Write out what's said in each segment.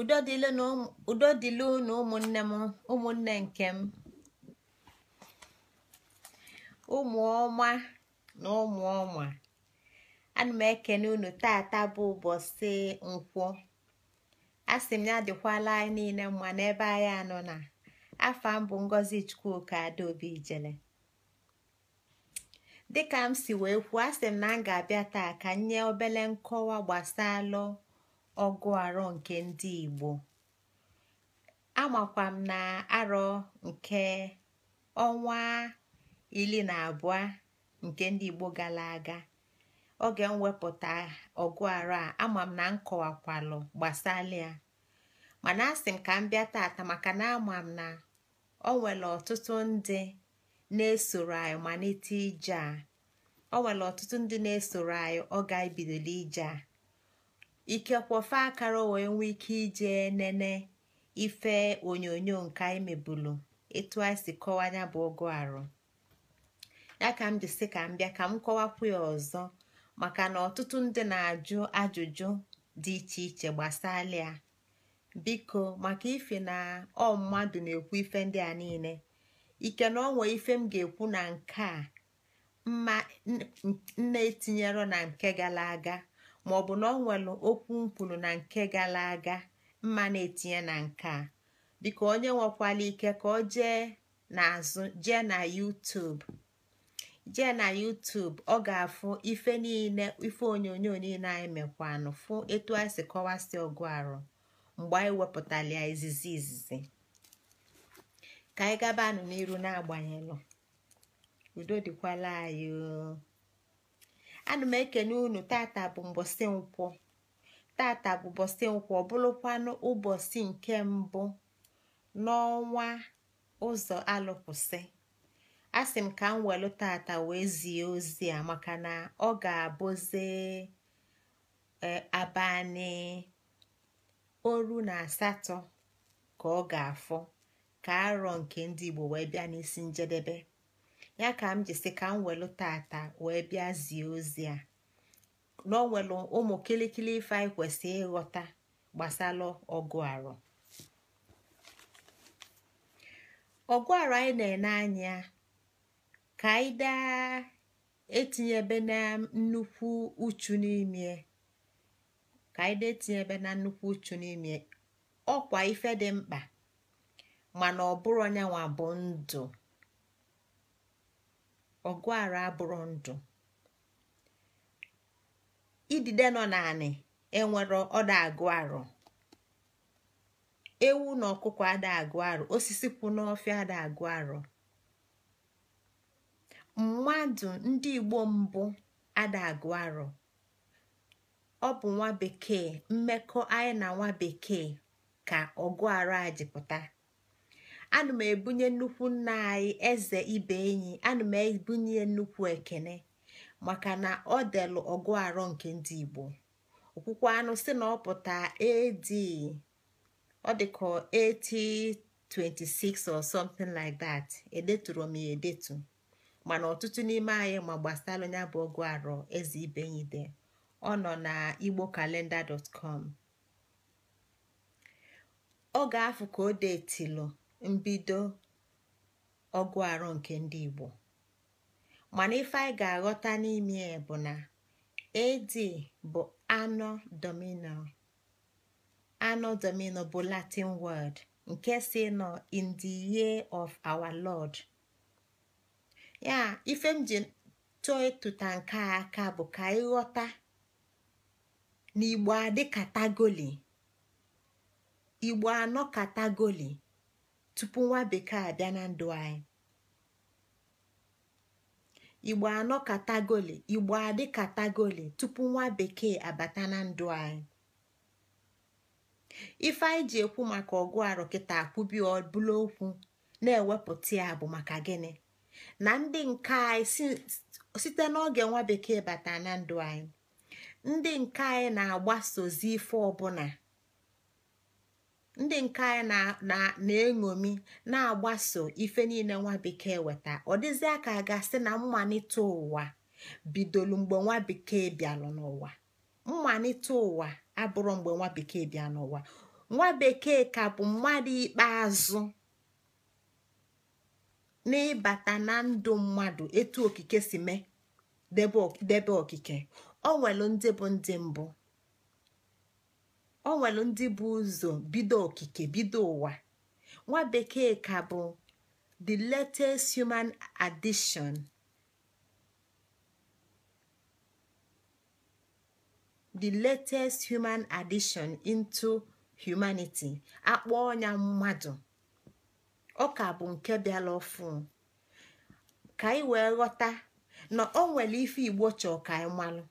udo dịlụ na ụmụnne nke m ụmụ na ụmụ ana m ekene unu tata bụ ụbọchị nkwọ a m ya dịkwala anyị niile mma n'ebe anyị anọ na mbụ m chukwu Ngozi Chukwuka Adaobi Ijele dịka m si wee kwuo a m na m ga-abịa taa ka nye obele nkọwa gbasalụ ọgụ arọ nke ndị Igbo amakwa m na arọ nke ọnwa iri na abụọ nke ndị Igbo gara aga oge mwepụta wepụta ọgụ arọ a ama m na m kọwakwalụ gbasara ya mana asị m ka m bịa tata maka na ama m na o nwere ọtụtụ ndị na-esoro anyị malite ije a o nwere ọtụtụ ndị na-esoro anyị ọ ga ije a ikekwofe akara wee nwee ike ije nene ife onyonyo nke anyị mebulu etu anyị si kọwa ya bụ ọgụ arụ ya ka m jisi ka m bịa ka m kọwakwu ya ọzọ maka na ọtụtụ ndị na-ajụ ajụjụ dị iche iche gbasala ya biko maka ife na ọ mmadụ na-ekwu ife ndị a niile ike na onwe ife m ga-ekwu na nke a mma nne etinyero na nke gara aga maọbụ na ọ nwere okwu mkwulu na nke gara aga mma na-etinye na nke a biko onye nwekwala ike ka ọ jee n'azụ jee na YouTube jee na YouTube ọ ga-afụ ife niile ife onyonyo niile anyị mekwanụ fụ etu anyị si kọwasị ọgụ arụ mgbe anyị wepụtara izizi izizi ka anyị gaba gabanụ n'iru na-agbanyeghị na-agbanyelụ udo dịkwala anyị ana m ekene unu tata bụ mbọsị nkwọ tata bụ bọsị nkwọ bụrụkwanụ ụbọchị nke mbụ n'ọnwa ụzọ alụkwụsị asị m ka m welụ tata wee zie ozi a maka na ọ ga-abụzi e, abalị oru na asatọ ka ọ ga-afọ ka arọ nke ndị Igbo wee bịa n'isi njedebe ya ka m jisi ka m welu tata wee bịa zie ozi a na o ụmụ kilikili ife anyị kwesị ịghọta gbasara ọgụ arụ ọgụ arụ anyị na-ene anya ka anyị daa etinyebe na nnukwu uchu n'ime ka anyị etinyebe na nnukwu uchu n'ime ọkwa ife dị mkpa mana ọ bụrụ onyanwa bụ ndụ ọgụara abụrụ ndụ idide nọ naanị enwere ọda agụ arụ ewu na ọkụkọ ada agụ arụ osisi kwụ n'ọfịa ada agụ arụ mmadụ ndị igbo mbụ ada agụ arụ ọ bụ nwa bekee mmekọ anyị na nwa bekee ka ọgụ arụ a jipụta ana m ebunye nnukwu nna anyị eze ibe enyi ana m ebunye nnukwu ekene maka na ọ delụ ọgụ arọ nke ndị igbo okwukwo anụ si na ọpụta pụta ad ọ dị ka 1826 or something like that edeturu m ya edetu mana ọtụtụ n'ime anyị ma gbasara onye bụ ọgụ arọ eze ibe enyi de ọ nọ na igbo kalenda dọtkọm ọ ga-afụ ka o deetilu mbido ọgụ arụ nke ndị Igbo mana ife anyị ga-aghọta n'ime ya bụ na AD bụ anọ domino anọ domino bụ Latin word nke si nọ in the year of our Lord ya ife m ji chọọ ịtụta nke a aka bụ ka ịghọta na Igbo adị katagoli Igbo anọ katagoli tupu nwa bekee abịa na ndụ anyị igbo anọ katagoli igbo adị katagoli tupu nwa bekee abata na ndụ anyị ife anyị ji ekwu maka ọgụ arụ kịta akwụbi ọbụla okwu na-ewepụta ya bụ maka gịnị na ndị nke anyị site n'oge nwa bekee bata na ndụ anyị ndị nke anyị na-agbasozi ife ọbụla ndị nke anyị na-eṅomi na-agbaso ife niile nwa bekee weta ọ dịzị aka gasị na mmalite ụwa bidolu mgbe nwa bekee bịalụ n'ụwa mmalite ụwa abụrụ mgbe nwa bekee bịa n'ụwa nwa bekee ka bụ mmadụ ikpeazụ n'ịbata na ndụ mmadụ etu okike si mee debe okike ọ nwere ndị bụ ndị mbụ ọ nwere ndị bụ ụzọ bido okike bido ụwa nwa bekee ka bụ the latest human addition the latest human addition into humanity akpọ ọnya mmadụ ọ ka bụ nke bịara ọfụ ka anyị wee ghọta na ọ nwere ife igbo chọọ ka anyị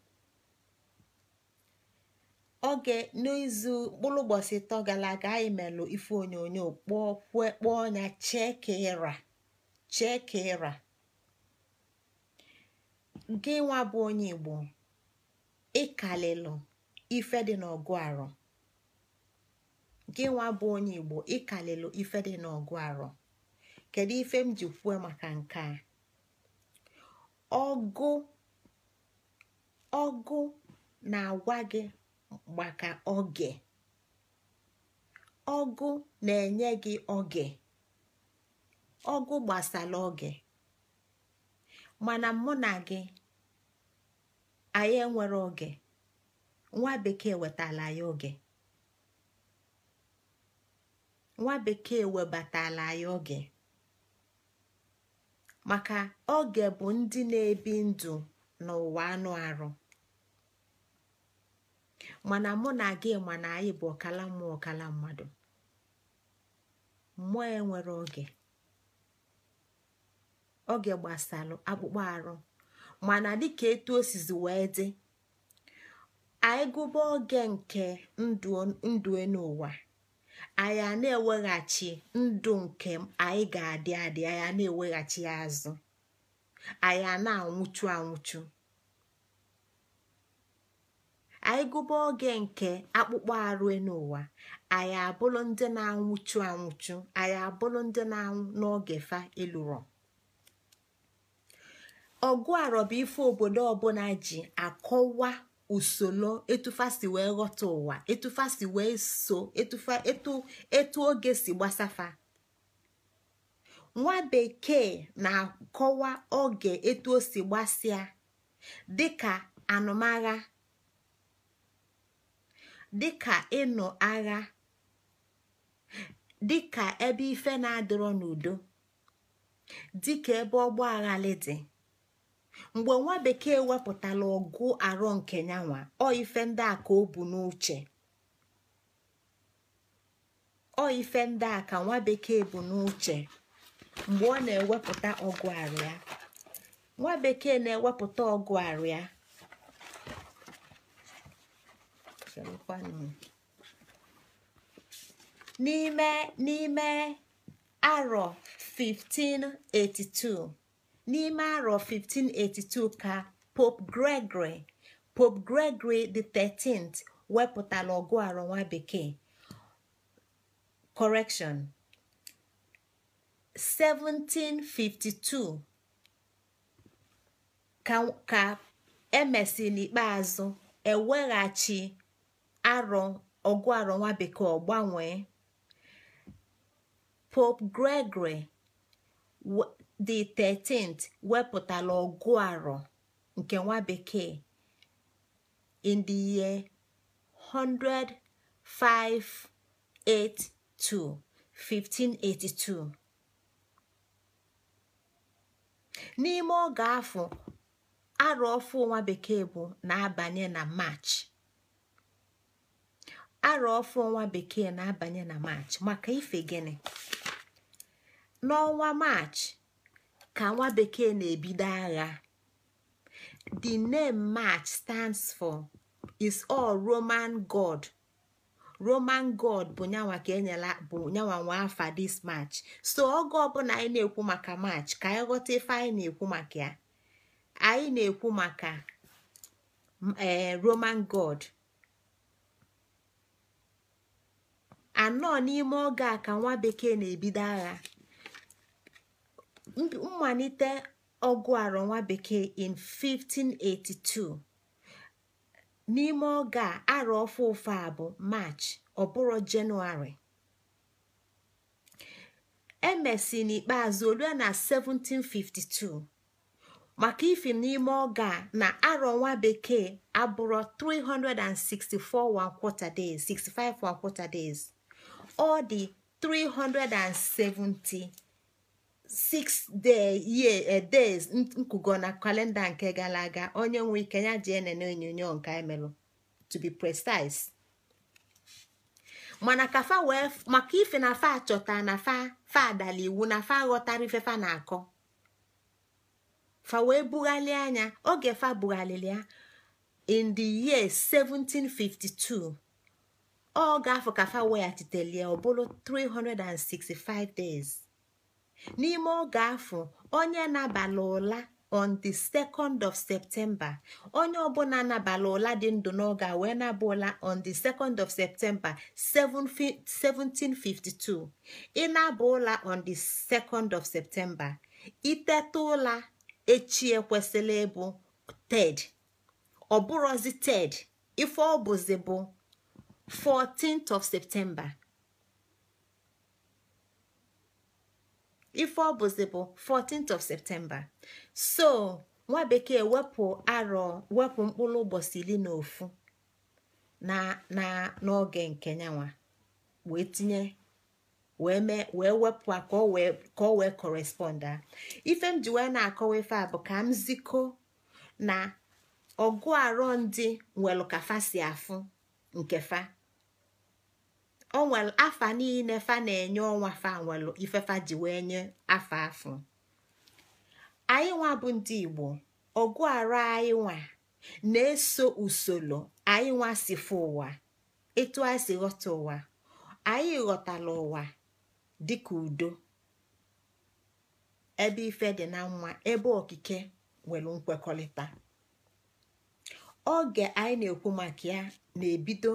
oge n'izu mkpụrụ ụbọchị ịtọ gara aga anyị melụ ife onyonyo kpọọ kwe kpọọ ọnya chee ka ịra chee ka ịra gị nwa bụ onye igbo ịkalịlụ ife dị n'ọgụ arọ gị nwa bụ onye igbo ịkalịlụ ife dị n'ọgụ arọ kedu ife m ji kwuo maka nke a ọgụ ọgụ na-agwa gị maka oge ọgụ na-enye gị oge ọgụ gbasara oge mana mụ na gị anyị enwere oge nwa bekee wetala ya oge nwa bekee webatala ya oge maka oge bụ ndị na-ebi ndụ n'ụwa anụ arụ mana mụ na gị mana na anyị bụ ọkala mmụọ ọkala mmadụ mmụọ enwere oge oge gbasalụ akpụkpọ arụ mana dịka etu osizi wee dị anyị gụba oge nke ndụ n'ụwa anyị na-eweghachi ndụ nke anyị ga-adị adị anyị na-eweghachi azụ anyị na-anwụchu anwụchu anyị gụba oge nke akpụkpọ arụ n'ụwa anyị abụrụ ndị na-anwụchu anwụchu anyị abụrụ ndị na-anwụ n'oge fa ịlụrụ ọgụ arọba ife obodo ọbụla ji akọwa usoro si wee ghọta ụwa si wee so etu oge si gbasafa nwa bekee na-akọwa oge etu o si gbasịa dịka anụmagha dịka ịnụ agha dịka ebe ife na-adịrọ n'udo dịka ebe ọgba aghali dị mgbe nwa bekee wepụtala ọgụ arọ nke nyanwa ọ ife ndị a ka o bu n'uche ọ ife ndị a ka nwa bekee bu n'uche mgbe ọ na-ewepụta ọgụ arụ ya nwa bekee na-ewepụta ọgụ arụ ya sịrịkwanụ n'ime arọ 1582 n'ime arọ 1582 ka pope gregory pope gregory the 13th wepụtara ọgụ arọ nwa bekee 1752 ka ka emesi n'ikpeazụ eweghachi arọ ọgụ arọ nwa bekee ọgbanwee pop pope gregory the 13th wepụtala ọgụ nke nwa bekee in the year 10582 1582 n'ime oge afọ arọ ọfụ nwa bekee bụ na-abanye na march arọ ọfọ ọnwa bekee na-abanye na maachị maka ife gịnị n'ọnwa maachị ka nwa bekee na-ebido agha the name march stands for is all roman god roman god bụ nyanwa ka enyela bụ nyanwa nwa afa this march so oge ọbụla anyị na-ekwu maka march ka anyị ghọta ife anyị na-ekwu maka ya anyị na-ekwu maka eh, roman god anọ n'ime oge a ka nwa bekee na-ebido agha mmalite ọgụ arọ nwa bekee in 1582 n'ime oge a arọ ofe ofe a bụ march ọbụrọ jenụwarị emesi n'ikpeazụ olue na 1752 maka ifi n'ime oge a na arọ nwa bekee abụrụ 364 one quarter days 65 days ọ dị 376 day year eh, days nkụgo na kalenda nke gara aga onye nwe ike ya ji enene onyonyo nke emelụ to be precise maka ife na fa chọta na fa fa adala iwu na fa ghọtara ife fa na-akọ fa wee bughalị anya oge fa bughalịrị ya in the year 1752 ọ ga-afọ ka fa weghachitelie ọ bụrụ 365 days n'ime oge afọ onye nabala ụla on the 2nd of septemba onye ọbụla nabala ụla dị ndụ n'oge a wee naba ụla on the 2nd of septemba 1752 ịnaba ụla on the 2nd of septemba iteta ụla echi ekwesịla ịbụ ted ọ ted ife ọ bụzi bụ 14th of September ife ọ bụzi bụ 14th of September so nwa bekee wepụ arọ wepụ mkpụrụ ụbọchị iri na ofu na na n'oge nke nyanwa wee tinye wee mee wee wepụ a ka wee ka wee a ife m ji wee na-akọwa ife a bụ ka m ziko na ọgụ arọ ndị nwelụ ka fa si afụ nke fa afa niile fa na-enye ọnwa fa nwelụ ifefa ji wee nye afa afọ anyị nwa bụ ndị igbo ọgụ ara anyị nwa na-eso usoro anyị nwa si fụ ụwa etu anyị si ghọta ụwa anyị ghọtala ụwa dịka udo ebe ife dị na nwa ebe okike nwere nkwekọrịta oge anyị na-ekwu maka ya na-ebido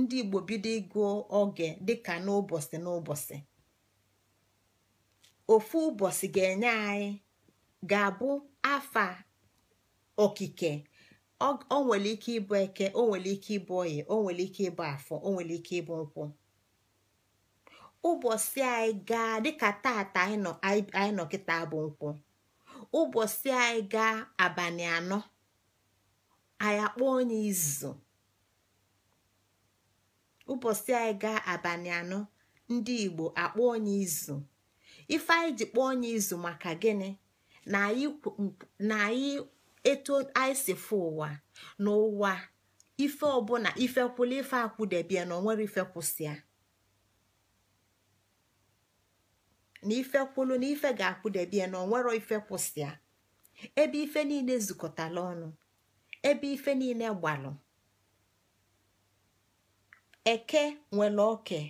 ndị igbo bido ịgụ oge dịka n'ụbọchị n'ụbọchị ofu ụbọchị ga-enye anyị ga-abụ afa okike o nwere ike ịbụ eke o nwere ike ịbụ oyi o nwere ike ịbụ afọ o nwere ike ịbụ nkwụ ụbọchị anyị gaa dịka tata anyị nọ kịta bụ nkwụ ụbọchị anyị gaa abalị anọ anyị akpọ onye izu ụbọchị anyị gaa abalị anọ ndị igbo akpọ onye izu ife anyị ji kpọọ onye izu maka gịnị na anyị eto anyị si ụwa n'ụwa ife ọbụla ifekwụla ife akwụdebie na onwere ife kwụsịa na ife kwụlụ na ife ga-akwụdebie na onwere ife ebe ife niile zụkọtala ọnụ ebe ife niile gbalụ eke nwere oke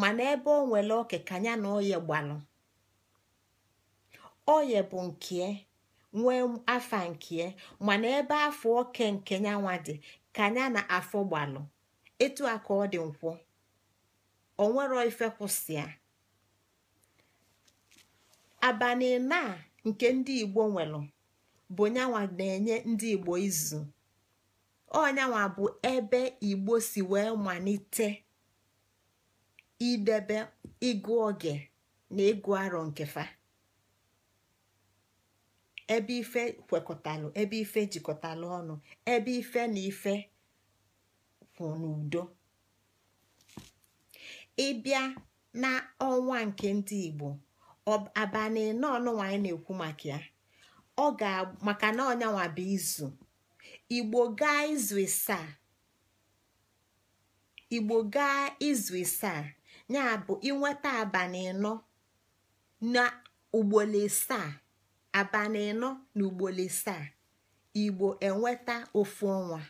mana ebe o nwere oke ka na oye gbalụ oye bụ nke nwee afa nke mana ebe afọ oke nke nyanwa dị ka na afọ gbalụ etu a ka ọ dị nkwụ o nwero ife kwụsịa abalị na nke ndị igbo nwere bụ nyanwa na-enye ndị igbo izu ọnyanwa bụ ebe igbo si wee malite idebe ịgụ oge na ịgụ arọ nkefa. ebe ife kwekọtalụ ebe ife jikọtalụ ọnụ ebe ife na ife kwụ n'udo ịbịa na ọnwa nke ndị igbo abalị n'ọnụ nwaanyị na-ekwu maka ya ọ ga maka na ọnyanwa bụ izu igbo gaa izu isaa igbo gaa izu isaa ya bụ inweta abalị ịnọ na ugboro isaa abalị ịnọ na ugboro isaa igbo enweta ofu ọnwa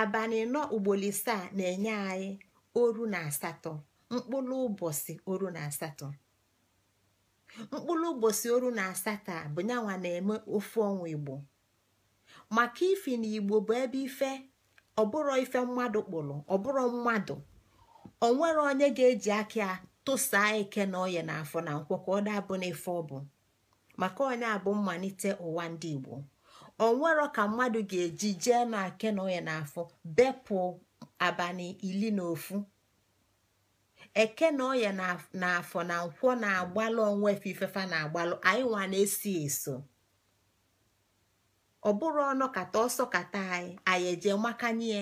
abalị ịnọ ugboro isaa na-enye anyị oru na asatọ mkpụrụ ụbọchị oru na asatọ mkpụrụ ụbọchị oru na asatọ a bụ nyanwa na-eme ofu ọnwa igbo maka ifi na igbo bụ ebe ife ọbụrụ ife mmadụ kpụrụ ọbụrụ mmadụ onwere onye ga-eji aka tụsaa ike na oye na afọ na nkwọ ka ọ dabụ n'ife ọ bụ maka onye abụ mmalite ụwa ndị igbo onwero ka mmadụ ga-eji jee na ake na oye na afọ bepụ abalị ili na ofu eke na oye na afọ na nkwọ na-agbalụ onwe ifefa na-agbalụ anyị nwa na-esi eso ọ bụrụ ọnụ kata ọsọ kata anyị anyị eje makanye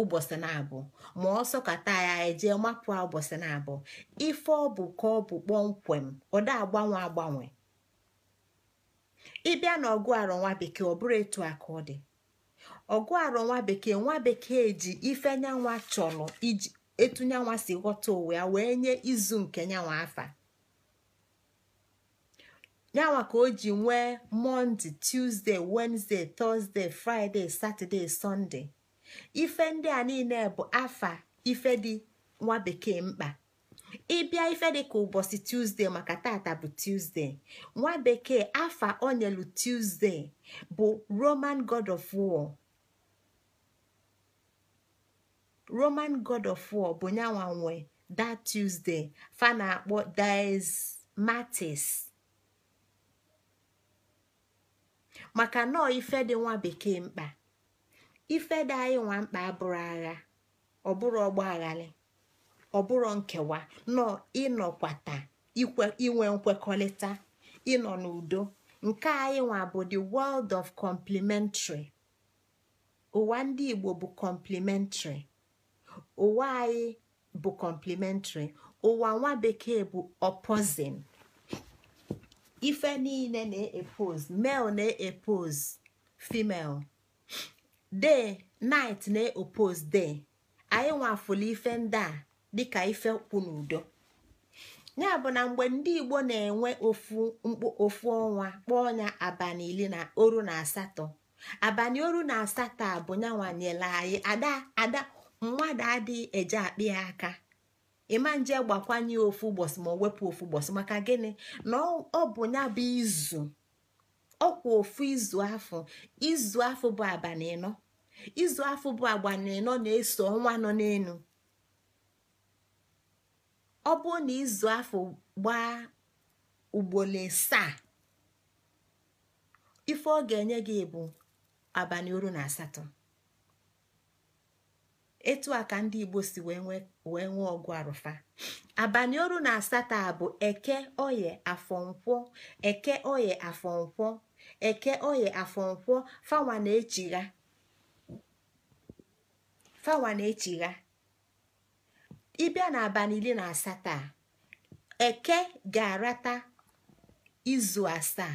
ụbọchị na-abụ ma ọsọ kata anyị anyị eje mapụ ụbọchị na-abụ ife ọ bụ ka ọ bụ kpọmkwem ọ agbanwe agbanwe ịbịa na ọgụ arọ nwa bekee ọ bụrụ etu a ka ọ dị ọgụ arọ nwa bekee nwa bekee ji ife nyanwa chọrọ iji etu nyanwa si ghọta ụwa ya wee nye izu nke nyanwa afa yanwa ka o ji nwee monde tuzdee wenezde tọzdee fraịde satọde sọnde ife ndị a niile bụ afa ife dị nwa bekee mkpa ịbịa ife dị ka ụbọchị tuzdee maka tata bụ tuzdee nwa bekee afa onyelu tuzdee bụ roman god of war roman god of war bụ nyanwa nwe that tuzdee fa na-akpọ dies matis. maka nọọ ife dị nwa bekee mkpa ife dị anyị nwa mkpa abụrụ agha bụrụ ọgba ọ bụrụ nkewa nọọ ịnọkwata inwe nkwekọrịta ịnọ n'udo nke anyị nwa bụ the world of complementary ụwa ndị Igbo bụ complementary ụwa anyị bụ complementary ụwa nwa bekee bụ opposing ife niile na-epose male na-epose female de night na-epose de anyị nwafụla ife ndị a dịka ife na n'udo ya bụ na mgbe ndị igbo na-enwe ofu ofu ọnwa kpọọ ya abalị iri na oru na asatọ abalị oru na asatọ a bụ nyanwanyela anyị ada ada mmadụ adịghị eje akpị ya aka ịma nje gbakwanye ofu ụbọchị ma ọ wepụ ofu ụbọchị maka gịnị na ọ bụ ya bụ izu ọkwa ofu izu afọ izu afọ bụ abalị ịnọ izu afọ bụ abalị na-eso ọnwa nọ n'elu ọ bụ na izu afọ gbaa ugboro asaa ife ọ ga-enye gị bụ abalị oru na asatọ etu a ka ndị Igbo si wee nwee wee nwee ọgụ arụfa abalị oru na asatọ bụ eke oye afọ nkwọ eke oye afọ nkwọ eke oye afọ nkwọ fawa na-echigha fawa na-echigha ịbịa na abalị iri na asatọ eke ga-arata izu asaa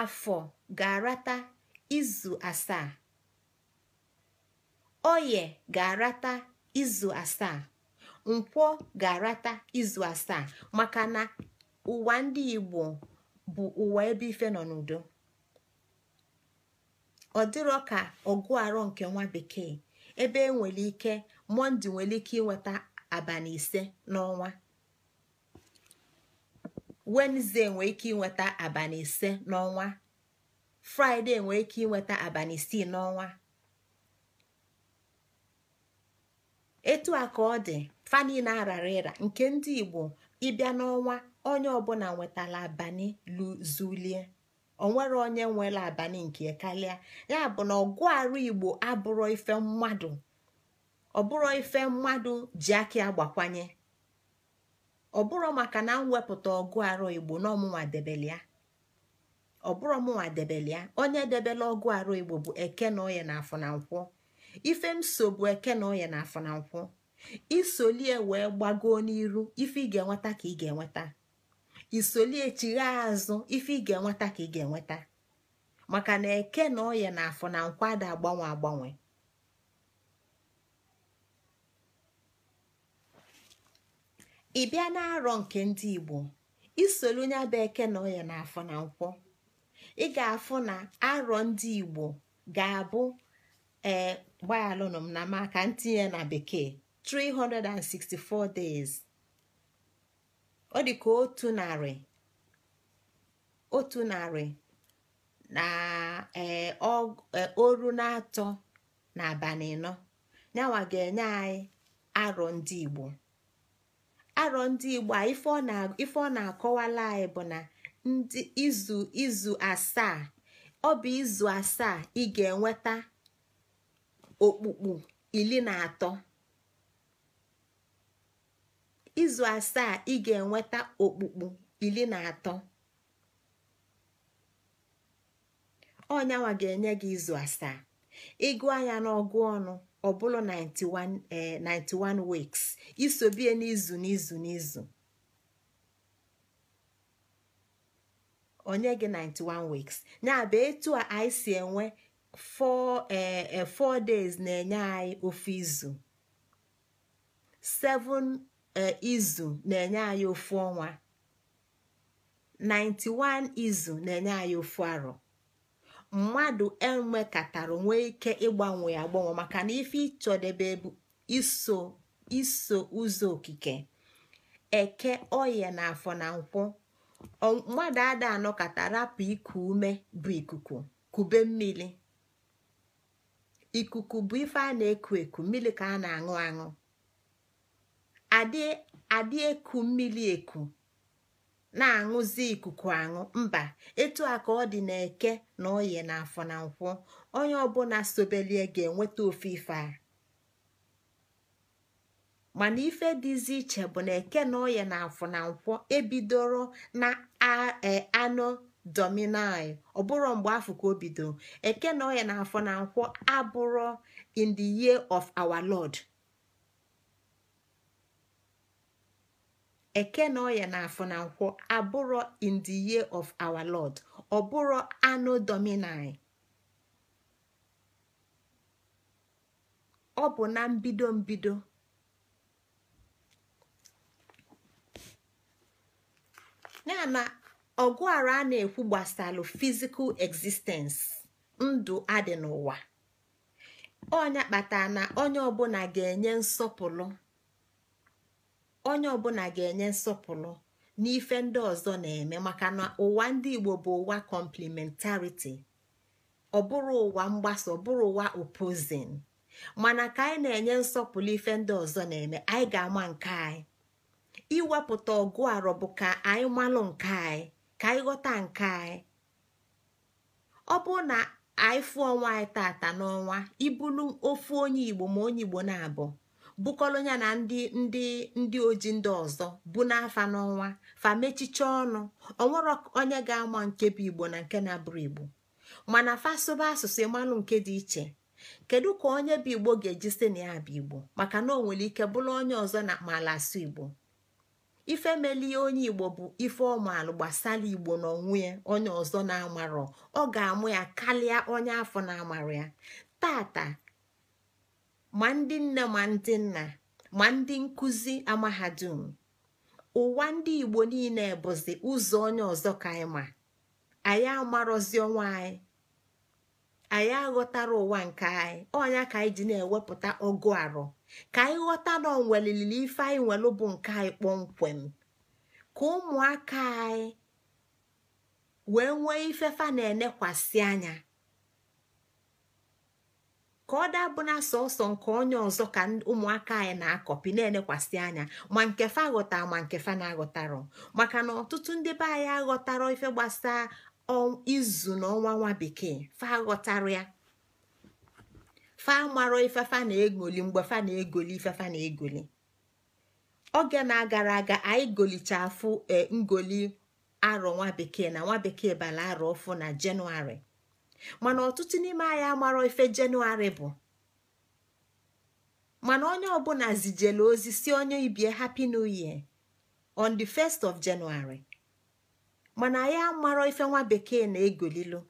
afọ ga-arata izu asaa oye ga-arata izu asaa nkwọ ga-arata izu asaa maka na ụwa ndị Igbo bụ ụwa ebe ife nọ n'udo ọ dịrọ ka ọgụ arọ nke nwa bekee ebe enwere ike mọnde nwere ike inweta abalị ise n'ọnwa wenezdee nwere ike inweta abalị ise n'ọnwa fraịde nwere ike inweta abalị isii n'ọnwa etu a ka ọ dị fani na arara ịra nke ndị igbo ịbịa n'ọnwa onye ọbụla nwetara abani luzulie onwere onye nwere abani nke karịa ya bụ na ọgụ arụ igbo abụrọ ife mmadụ ọbụrọ ife mmadụ ji aka agbakwanye ọbụrụ maka na m ọgụ arụ igbo na ọmụnwa ya ọbụrụ ọmụnwa onye debele ọgụ arụ igbo bụ eke na oye na afọ na nkwụ ife m so bụ eke na ọya na afọ na nkwọ isolie wee gbagoo n'iru ife ị ga-enweta ka ị ga-enweta isolie chigha azụ ife ị ga-enweta ka ị ga-enweta maka na eke na ọya na afọ na nkwọ ada agbanwe agbanwe ị bịa na-arọ nke ndị Igbo isoli onye bụ eke na ọya na afọ na nkwọ ị ga-afụ na arọ ndị Igbo ga-abụ ee eh, gbaghaalụnụ m na maka ntinye na bekee 364 days ọ dị ka otu narị otu narị na ee eh, eh, oru na-atọ na abalị anọ ga-enye anyị arọ ndị Igbo arọ ndị Igbo a ife ọ na-akọwala anyị bụ na ndị izu izu asaa ọ bụ izu asaa ị ga-enweta okpukpu iri na atọ izu asaa ị ga-enweta okpukpu iri na atọ ọnyanwa ga-enye gị izu asaa ịgụ anya n'ọgụ ọnụ ọ bụrụ 91 eh, weeks isobie n'izu n'izu n'izu onye gị 91 weeks ya bụ etu a anyị si enwe four e four days na-enye anyị ofu izu seven eh, izu na-enye anyị ofu ọnwa 91 izu na-enye anyị ofu arọ mmadụ enwekatara nwee ike ịgbanwe agbanwe maka na ife ịchọdebe bụ iso iso ụzọ okike eke oye na afọ na nkwụ mmadụ ada kata rapụ iku ume bụ ikuku kube mmiri ikuku bụ ife a na-eku eku mmiri ka a na-aṅụ aṅụ adị eku mmiri eku na-aṅụzi ikuku aṅụ mba etu a ka ọ dị na-eke na onye na afọ na nkwụ onye ọbụla sobelie ga-enweta ofe ife a mana ife dịzi iche bụ na eke na oye na afọ na nkwụ ebidoro na e, anụ dominai ọ bụrụ mgbe afọ ka o bido eke na ọya na afọ na nkwọ in the year of our lord eke na ọya na afọ na nkwọ abụrụ in the year of our lord ọ bụrụ anụ dominai ọ bụ na mbido mbido ya na ọgụara a na-ekwu gbasalụ fizikal existence ndụ adị n'ụwa onye kpatara na onye ọbụla ga-enye nsọpụrụ onye ọbụla ga-enye nsọpụrụ n'ife ndị ọzọ na-eme maka na ụwa ndị Igbo bụ ụwa kọmplimentariti ọ bụrụ ụwa mgbasa ọ bụrụ ụwa opozin mana ka anyị na-enye nsọpụrụ ife ndị ọzọ na-eme anyị ga-ama nke anyị iwepụta ọgụ arọ bụ ka anyị malụ nke anyị ka anyị ghọta nke anyị ọ bụrụ na anyị fụọ ọnwa anyị tata n'ọnwa ibulu ofu onye igbo ma onye igbo na-abụ bụkọrọ ya na ndị ndị ndị oji ndị ọzọ bụ n'afa n'ọnwa fa ọnụ onwere onye ga-ama nke bụ igbo na nke na-abụrụ igbo mana fasoba asụsụ ịmalụ nke dị iche kedu ka onye bụ igbo ga-eji si na ya bụ igbo maka na o nwere ike bụrụ onye ọzọ na mala asụ igbo Ife ifemelie onye igbo bụ ife ọmụalụ gbasara igbo n'onwe ya onye ọzọ na-amarọ ọ ga-amụ ya kalịa onye afọ na-amarụ ya tata ma ndị nne ma ndị nna ma ndị nkụzi amahadum ụwa ndị igbo niile bụzi ụzọ onye ọzọ ka anyị ma anyị amarọzi ọnwa anyị anyị aghọtara ụwa nke anyị ọnya ka anyị ji na-ewepụta ọgụ arọ ka anyị ghọta na onwelilili ife anyị nwelụ bụ nke anyị kpọmkwem ka ụmụaka anyị wee nwee ifefa na-enekwasị anya ka ọ daa bụ na sọsọ nke onye ọzọ ka ụmụaka anyị na-akọpi na-enekwasị anya ma nke fa aghọta ma nke fa na-aghọtarọ maka na ọtụtụ ndị be anyị aghọtarọ ife gbasa izu na ọnwa nwa bekee fa aghọtara ya fa marọ ifefa na-egoli mgbe fa na-egoli ifefa na-egoli oge na-agara aga anyị golicha afụ e, ngoli arọ nwa bekee na nwa bekee bala arọ ọfụ na jenụwarị mana ọtụtụ n'ime anyị amarọ ife jenụwarị bụ mana onye ọbụla zijela ozi si onye ibie happy new year on the 1st of January mana anyị amarọ ife nwa bekee na-egolilu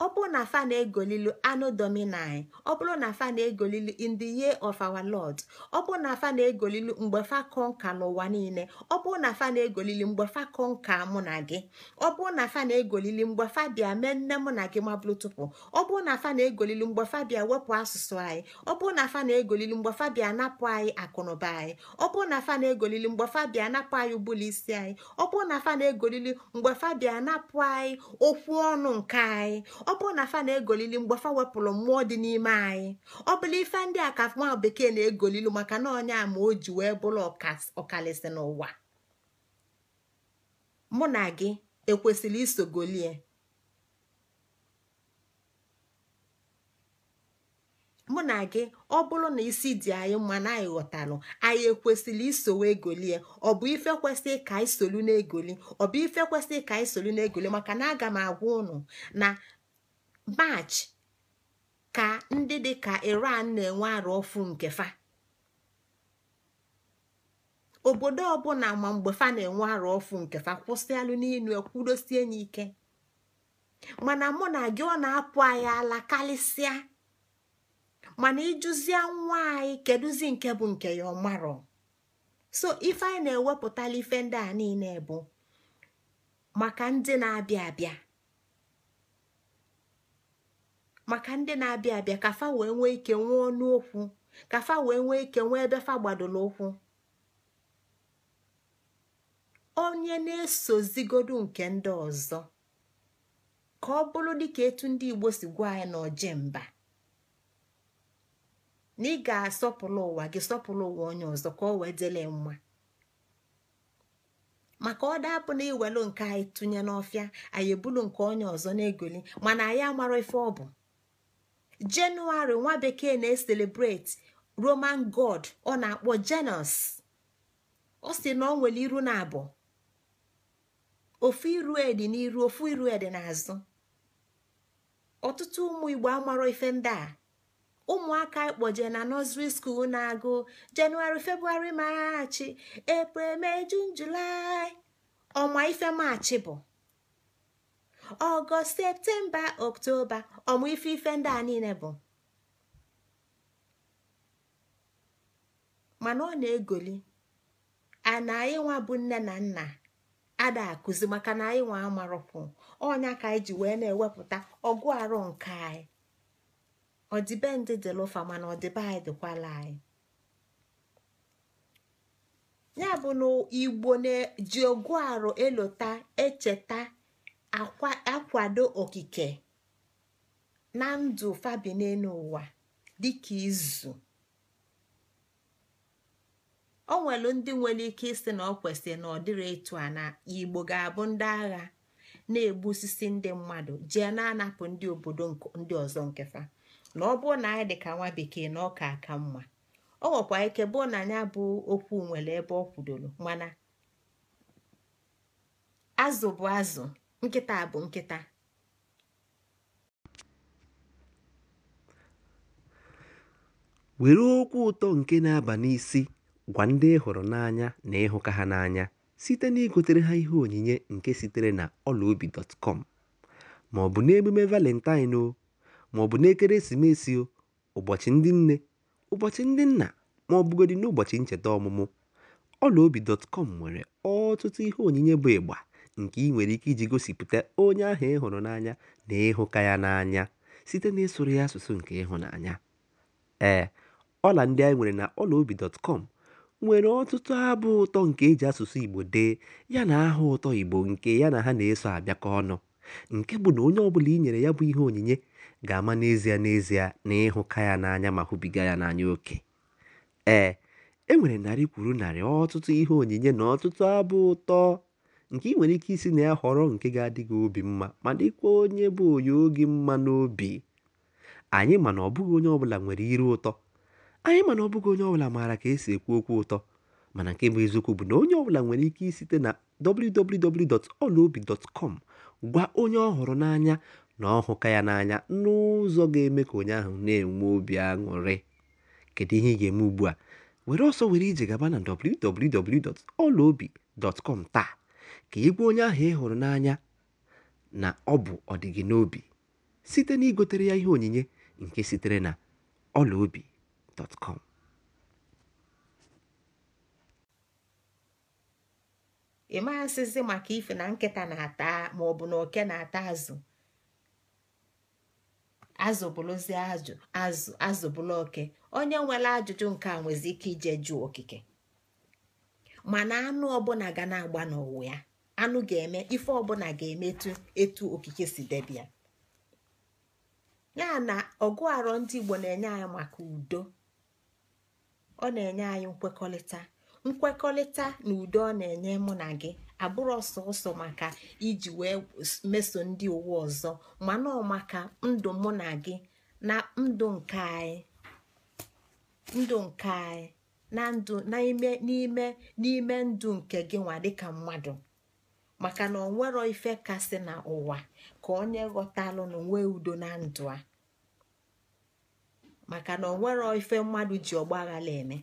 ọ bụrụ na fa na-egolilu anụ dominai ọ bụrụ na fa na-egolilu in the year of our lord ọ bụrụ na fa na-egolilu mgbe fa kọnka n'ụwa niile ọ bụrụ na fa na-egolili mgbe fa kọnka mụ na gị ọ bụrụ na fa na-egolili mgbe fa bịa mee nne mụ na gị mabụrụ tupu ọ bụrụ na fa na-egolilu mgbe fa bịa wepụ asụsụ anyị ọ bụrụ na fa na-egolili mgbe fa bịa napụ anyị akụnụba anyị ọ bụrụ na fa na-egolili mgbe fa bịa napụ anyị ụbụlụ isi anyị ọ bụrụ na fa na-egolili mgbe fa bịa napụ anyị okwu ọnụ nke anyị ọ bụrụ na fa na-egolili mgbafa wepụrụ mmụọ dị n'ime anyị ọ bụla ife ndị a ka nwa bekee na-egolilu maka na onye ma o ji wee bụrụ ọkalịsị n'ụwa mụ na gị ekwesịrị isogolie mụ na gị ọ bụrụ na isi dị anyị mma na anyị ghọtalụ anyị ekwesịrị wee egolie ọ bụ ife kwesịrị ka anyị solu na-egoli ọ bụ ife kwesịrị ka anyị solu na-egoli maka na aga m agwa ụnụ na March ka ndị dị ka Iran na-enwe arụ ọfụ nke fa obodo ọbụla ma mgbe fa na-enwe arụ ọfụ nke fa kwụsịalụ n'inu ekwudosie n'ike mana mụ na gị ọ na-apụ anyị ala karịsịa mana ịjụzie nwa anyị kedụzi nke bụ nke ya ọmarọ so ife anyị na-ewepụtala ife ndị a niile bụ maka ndị na-abịa abịa maka ndị na-abịa abịa ka fa wee nwee ike nwee ọnụ okwu ka fa wee nwee ike nwee ebe fa gbadoro ụkwụ onye na-esozigodu nke ndị ọzọ ka ọ bụrụ dịka etu ndị Igbo si gwa anyị na mba na ị ga-asọpụrụ ụwa gị sọpụrụ ụwa onye ọzọ ka ọ wee dịle mma maka ọ dapụ na iwelu nke anyị tụnye n'ọfịa anyị ebulu nke onye ọzọ na-egoli mana anyị amarọ ife ọ bụ jenụwarị nwa bekee na-eselebreti roman god ọ na-akpọ jenus ọ si na ọ nwere iru na abụ ofu iru edi n'iru ofu iru na e n'azụ ọtụtụ ụmụ igbo amarọ ife ndị a ụmụaka ikpoje na nọsri skuul na-agụ jenụwarị febụwarị maachị april mee jun julaị ọnwa ife maachị bụ ọgọst septemba oktoba ọmụ ife ife ndị a niile bụ mana ọ na-egoli ana anyị nwa bụ nne na nna ada akụzi maka na anyị nwa amarụkwụ ọnya ka anyị ji wee na-ewepụta ọgụ arụ nke anyị ọdịbendị mana ọdịbe anyị dịkwala anyị ya bụ na igbo na ji ọgụ arụ elota echeta akwado okike na ndụ fabineenu ụwa dịka izu o nwelu ndị nwere ike ịsị na ọ kwesịrị na ọ dịrị ịtụ a na igbo ga-abụ ndị agha na egbu osisi ndị mmadụ jee na-anapụ ndị obodo ndị ọzọ nkefa na ọ bụrụ na anyị dị ka nwa bekee na ọka aka mma ọ nwekwa ike bụọ na anya bụ okwu nwere ebe ọ kwudoro mana azụ bụ azụ nkịta bụ nkịta were okwu ụtọ nke na-aba n'isi gwa ndị ị hụrụ n'anya na ịhụka ha n'anya site na igotere ha ihe onyinye nke sitere na ọlaobi.com ma ọ bụ n'emume valentine o ma ọ bụ n'ekeresimesi o ụbọchị ndị nne ụbọchị ndị nna ma ọ n'ụbọchị ncheta ọmụmụ ọlaobi.com nwere ọtụtụ ihe onyinye bụ ịgba nke ị nwere ike iji gosipụta onye ahụ ị hụrụ n'anya na ịhụka ya n'anya site n'ịsụrụ ya asụsụ nke ịhụnanya. Ee, ọla ndị anyị nwere na ọlaobi.com nwere ọtụtụ abụ ụtọ nke e ji asụsụ Igbo dee ya na aha ụtọ Igbo nke ya na ha na-eso abịakọ ọnụ, nke bụ na onye ọbụla i nyere ya bụ ihe onyinye ga-ama n'ezie n'ezie na ịhụka ya n'anya ma hụbiga ya n'anya oke. Ee, e nwere narị kwuru narị ọtụtụ ihe onyinye na ọtụtụ abụ ụtọ. nke ị nwere ike isi na ya họrọ nke ga-adị gị obi mma ma dịkwa onye bụ onye oge mma n'obi anyị mana ọbụghị onye ọbụla nwere iru ụtọ anyị mana ọbụghị onye ọbụla maara ka esi ekwu okwu ụtọ mana nke bụ eziokwu bụ na onye ọbụla nwere ike isite na www.olaobi.com gwa onye ọ hụrụ n'anya na ọ hụka ya n'anya n'ụzọ ga-eme ka onye ahụ na-enwe obi aṅụrị kedu ihe ị ga-eme ugbu a were ọsọ were ije gaba na www.olaobi.com taa ka igwe onye ahụ ị hụrụ n'anya na ọ bụ ọdịgị n'obi site na igotere ya ihe onyinye nke sitere na ọlaobi.com ị maghasịzi maka ife na nkịta na-ata ma ọ bụ na oke na-ata azụ azụ ajụ azụ azụ bụrụ oke onye nwere ajụjụ nke a nwezi ike ije jụọ okike mana anụ ọbụla ga na-agba n'ụwa ya anụ ga-eme ife ọbụla ga eme etu okike si debia ya na ọgụ arọ ndị Igbo na-enye anyị maka udo ọ na-enye anyị nkwekọrịta nkwekọrịta na udo ọ na-enye mụ na gị abụrụ ọsọ ọsọ maka iji wee meso ndị uwe ọzọ mana ọ maka ndụ mụ na gị na ndụ nke anyị ndụ nke anyị na ndụ n'ime n'ime ndụ nke gị nwa dịka mmadụ maka na onwero ife kasị na ụwa ka onye ghọtalụ na onwe udo na ndụ a maka na onwero ife mmadụ ji ọgba aghala eme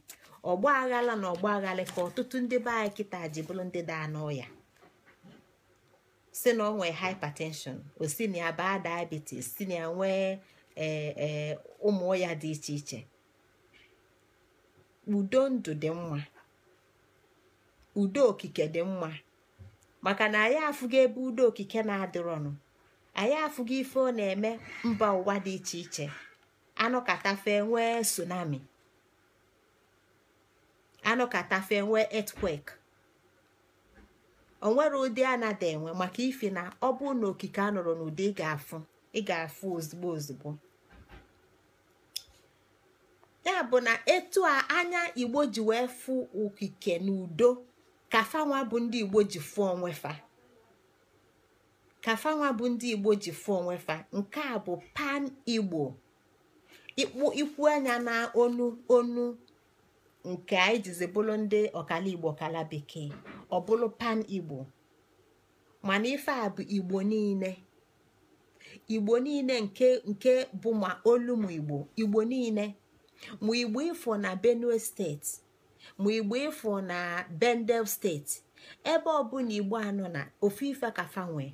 ọgba aghala na ọgba aghala ka ọtụtụ ndị be anyị kịta ji bụrụ ndị daa n'ọya si na ọ nwee hypertension o baa diabetes si nwee ee e, ụmụ dị iche iche udo ndụ dị mma udo okike dị mma maka na anyị afụgo ebe udo okike na-adịrọnụ anyị afụgo ife ọ na-eme mba ụwa dị iche iche anụ katafe nwee tsunami anụ nwee etwek onwere ụdị a nada enwe maka ife na ọ bụ na okike a nọrọ n'ụdị ị ga-afụ ị ga-afụ ozugbo ozugbo ya bụ na etu a anya igbo ji wee fụ okike n'udo kafanwa bụ ndị igbo ji fụọ onwefa kafanwa bụ ndị igbo ji fụọ nke a bụ pan igbo ikpu ikwu anya na onu onu nke anyị jizi bụrụ ndị ọkala igbo ọkala bekee ọ pan igbo mana ife a bụ igbo niile igbo niile nke nke bụ ma olu igbo igbo niile ma igbo ifo na benue steeti ma igbo ịfụ na bendel steeti ebe ọbụla igbo anọ na ofu ife ka nwee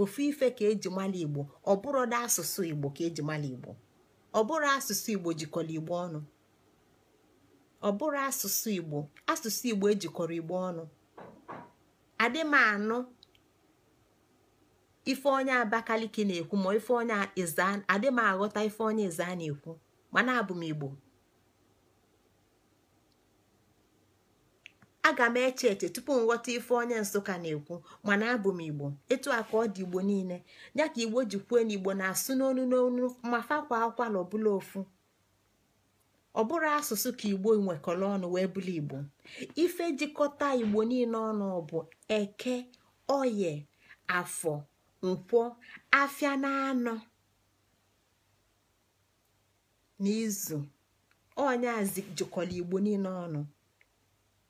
ofu ife ka eji mala igbo ọ bụrụ na asụsụ igbo ka eji igbo ọ bụrụ asụsụ igbo jikọrọ igbo ọnụ ọ bụrụ asụsụ igbo ejikọrọ igbo ọnụ adị m anụ ife onye abakaliki na-ekwu ma ife onye m aghọta ife onye ịza na-ekwu mana abụ m igbo aga m eche eche tupu m ghọta ife onye nsụka na-ekwu mana abụ m igbo etu a ka ọ dị igbo niile ya ka igbo ji kwuo na igbo na-asụ n'onu n'onu ma fakwa akwala ọbụla ofu ọ bụrụ asụsụ ka igbo nwekọrọ ọnụ wee bụrụ igbo ife jikọta igbo niile ọnụ bụ eke oye afọ nkwọ afịa na anọ n'izu onye jikọrọ igbo niile ọnụ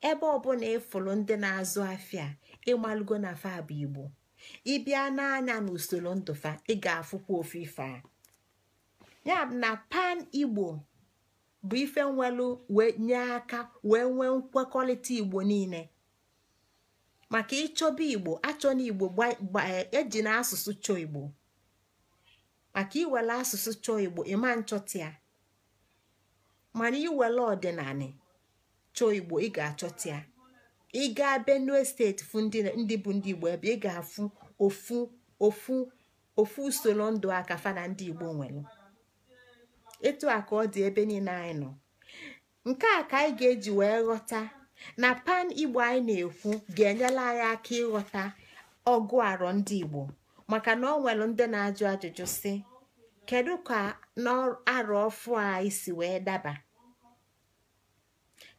ebe ọbụla ịfụrụ ndị na-azụ afịa ịmalụgo na fa bụ igbo ịbịa n'anya n'usoro ndụfa ị ga-afụkwa ofe ife a ya na pan igbo bụ ife nwelu wee nye aka wee nwee nkwekọrịta igbo niile maka ịchọba igbo achọ na igbo eji e na asụsụ chọọ igbo maka iwere asụsụ chọọ igbo ịma nchọta ya mana iwere ọdịnala chọọ igbo ị ga-achọta ya ị gaa benue steeti fụ ndị bụ ndị igbo ebe ị ga-afụ ofu ofu ofu usoro ndụ aka fa na ndị igbo nwere etu a ka ọ dị ebe niile anyị nọ nke a ka anyị ga-eji wee ghọta na pan igbo anyị na-ekwu ga-enyela anyị aka ịghọta ọgụ arọ ndị igbo maka na ọ nwere ndị na-ajụ ajụjụ si kedu ka n'arọ ọfụ a isi wee daba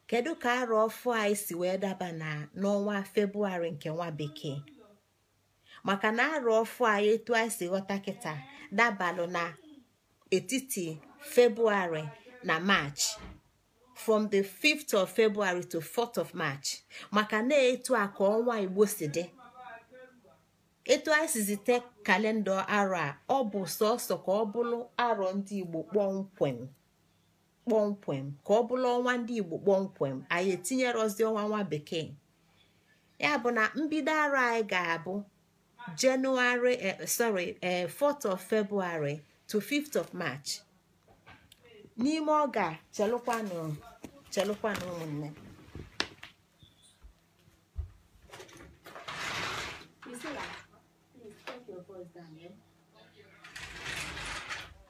kedu ka arụ ọfụ anyị si wee daba na n'ọnwa febụwarị nke nwa bekee maka na arụ ọfụ anyị etu anyị si ghọta kịta dabalụ na etiti febụwarị na maachị from the 5th of february to 4th of march maka na etu a ka ọnwa igbo si dị etu anyị si kalenda arọ a ọ bụ sọsọ ka ọ bụrụ arọ ndị igbo kpọmkwem kpọmkwem ka ọ bụla ọnwa ndị igbo kpọmkwem anyị etinyerozi ọnwa nwa bekee ya bụ na mbido ara anyị ga-abụ 4th eh, eh, of february to 5th of march n'ime ọ ga chelụkwanụ chelụkwanụ ụmụnne eh?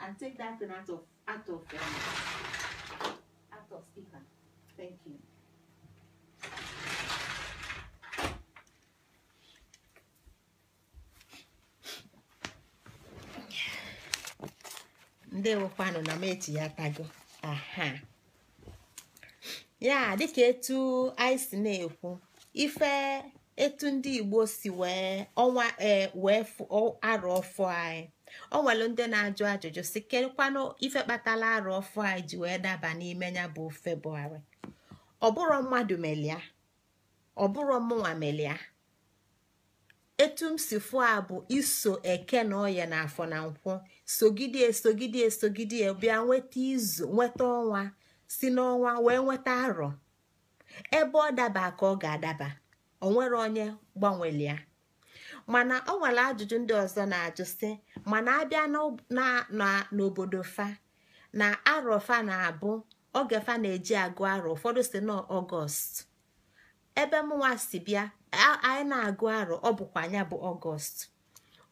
and take that thing out of out of um, Thank ya dịka etu na-ekwu ife etu ndị Igbo si wee ọnwa eh, wee arụ ọfọ anyị ọ nwelu ndị na-ajụ ajụjụ si ifekpatala ife kpatala arụ ọfụ a ji wee daba n'ime ya bụ febụwarị ọbụrụ mmadụ melia ọbụrụ mụnwa melia etu m si fụ a bụ iso eke na ọya na afọ na nkwụ sogidie sogidie sogidie bịa nweta izu nweta ọnwa si n'ọnwa wee nweta arọ ebe ọ daba ka ọ ga-adaba onwere onye gbanwelia mana ọ nwere ajụjụ ndị ọzọ na-ajụ sị mana abịa n'obodo fa na arọfa na-abụ oge fa na-eji agụ arọ ụfọdụ si na ọgọst ebe mụnwa si bịa anyị na-agụ arọ ọ bụkwa anya bụ ọgọst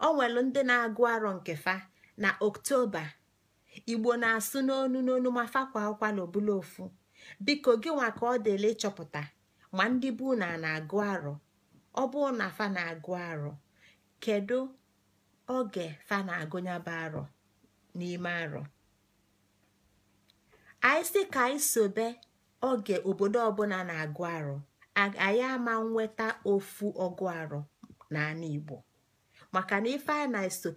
ọ nwere ndị na-agụ arọ nke fa na oktoba igbo na-asụ n'onu n'onu ma fakwa akwa obula ofu biko gị nwa ka ọ dịla ịchọpụta ma ndị bụ na na-agụ arọ ọ bụ na fa na-agụ arọ kedu oge fa na-agụnyaba arọ n'ime arọ anyị si ka anyị sobe oge obodo ọbụla na-agụ arọ anyị ama nweta ofu ọgụ arọ n'ala Igbo maka na ife anyị na-eso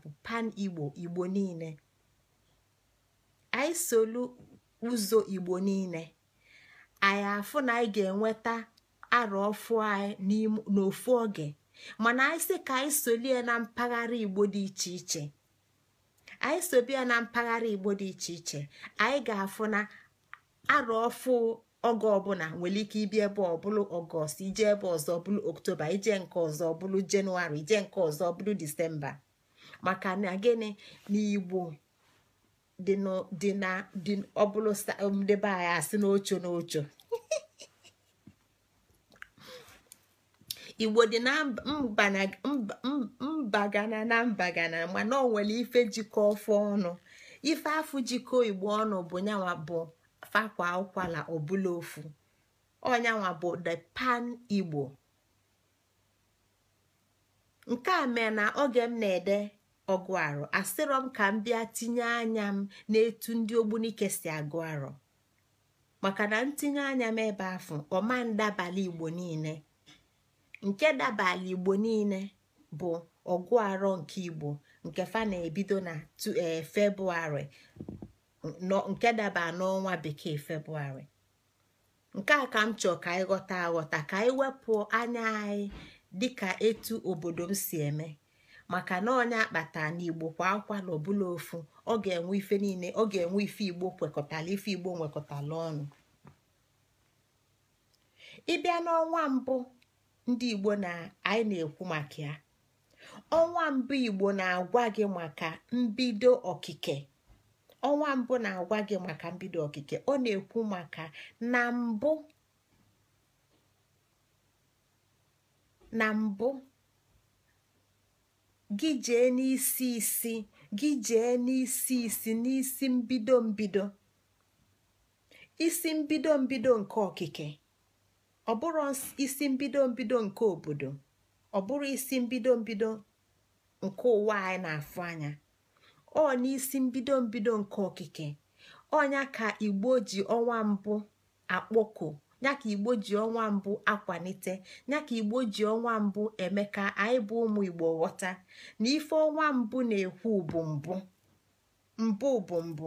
bụ pan Igbo Igbo niile anyị solu ụzọ Igbo niile anyị afụ na anyị ga-enweta arọ ọfụ anyị n'ofu oge mana anyị sị ka anyị solie na mpaghara igbo dị iche iche anyị sobia na mpaghara igbo dị iche iche anyị ga-afụ na arọ ọfụ oge ọbụla nwere ike ibi ebe ọbụlụ ọgọst ije ebe ọzọ ọbụla oktoba ije nke ọzọ ọbụla jenụwarị ije nke ọzọ ọbụla disemba maka na gịnị na igbo dị ọbụlụ ndebe um, anyị asị n'ocho n'ocho igbo dị na mbagana na mbagana mana ọ nwere ife jikọ ọfọ ọnụ ife afụ jikọ igbo ọnụ bụ nyanwa bụ fakwa ụkwala ọbụla ofu ọnyanwa bụ the pan igbo nke a mee na oge m na-ede ọgụ a asịrọ m ka m bịa tinye anya m n'etu ndị ogbunike si agụ arọ maka na ntinye anya m ebe afọ ọma igbo niile nke dabala igbo niile bụ ọgụ arọ nke igbo nke fa na-ebido na e, febụwarị nke daba n'ọnwa bekee febụwarị nke a ka m chọọ ka anyị ghọta aghọta ka anyị wepụ anya anyị ka etu obodo m si eme maka na onye akpata na igbo kwa akwa na ofu ọ ga-enwe ife niile ọ ga-enwe ife igbo kwekọtala ife igbo nwekọtala ọnụ ịbịa n'ọnwa mbụ ndị igbo na anyị na-ekwu maka ya ọnwa mbụ igbo na-agwa gị maka mbido okike ọnwa mbụ na-agwa gị maka mbido okike ọ na-ekwu maka na mbụ na mbụ gị jee n'isi isi gị jee n'isi isi n'isi mbido mbido isi mbido mbido nke okike ọ bụrụ isi mbido mbido nke obodo ọ bụrụ isi mbido mbido nke ụwa anyị na-afụ anya ọ n'isi mbido mbido nke okike ọnya ka igbo ji ọnwa mbụ akpọkọ ya ka igbo ji ọnwa mbụ akwalite ya ka igbo ji ọnwa mbụ eme ka anyị bụ ụmụ igbo ghọta na ife ọnwa mbụ na-ekwu bụ mbụ mbụ mbụ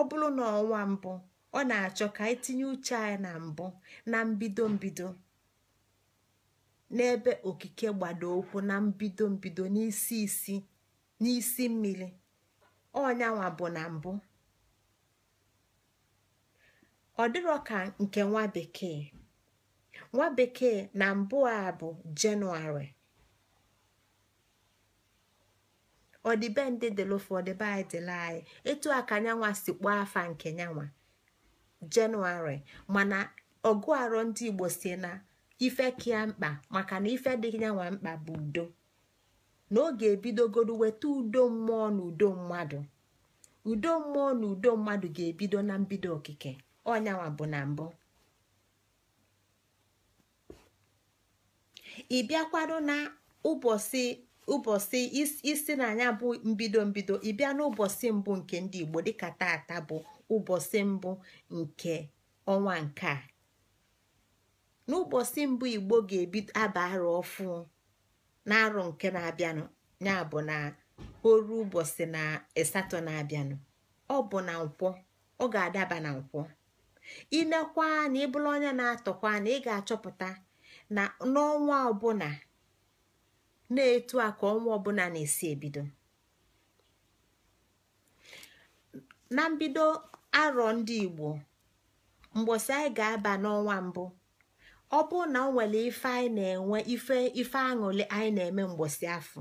ọ na ọnwa mbụ ọ na-achọ ka anyị tinye uche anyị na mbụ na mbido mbido n'ebe okike gbado okwu na mbido mbido n'isi isi n'isi mmiri ọnyanwa bụ na mbụ ọ dịrọ ka nke nwa bekee nwa bekee na mbụ a bụ jenụwarị ọdịbendị dịlụ ụfọdụ be anyị dịla anyị etu a ka nyanwa si kpọọ afa nke nyanwa jenụwarị mana ọgụ arọ ndị igbo si na ife kia mkpa maka na ife dị nyanwa mkpa bụ udo na ọ ga-ebidogoro weta udo mmụọ na udo mmadụ udo mmụọ na udo mmadụ ga-ebido na mbido okike ọnyanwa bụ na mbụ ị na ụbọchị ụbọchị isi na anya bụ mbido mbido ị bịa n'ụbọchị mbụ nke ndị igbo dịka tata bụ ụbọchị mbụ nke ọnwa nke a n'ụbọchị mbụ igbo ga-ebido arụ ọfụ n'arọ nke na-abịanụ ya bụ na oru ụbọchị na asatọ na-abịanụ ọ bụ na nkwọ ọ ga-adaba na nkwọ inekwa na ịbụla onye na-atọkwa na ị ga-achọpụta na n'ọnwa ọbụla na-etu a ka ọnwa ọbụla na-esi ebido na mbido arọ ndị igbo mgbosi anyị ga-aba n'ọnwa mbụ ọ bụrụ na ọ nwere ife anyị na-enwe ife ife anyị na-eme mgbosi afọ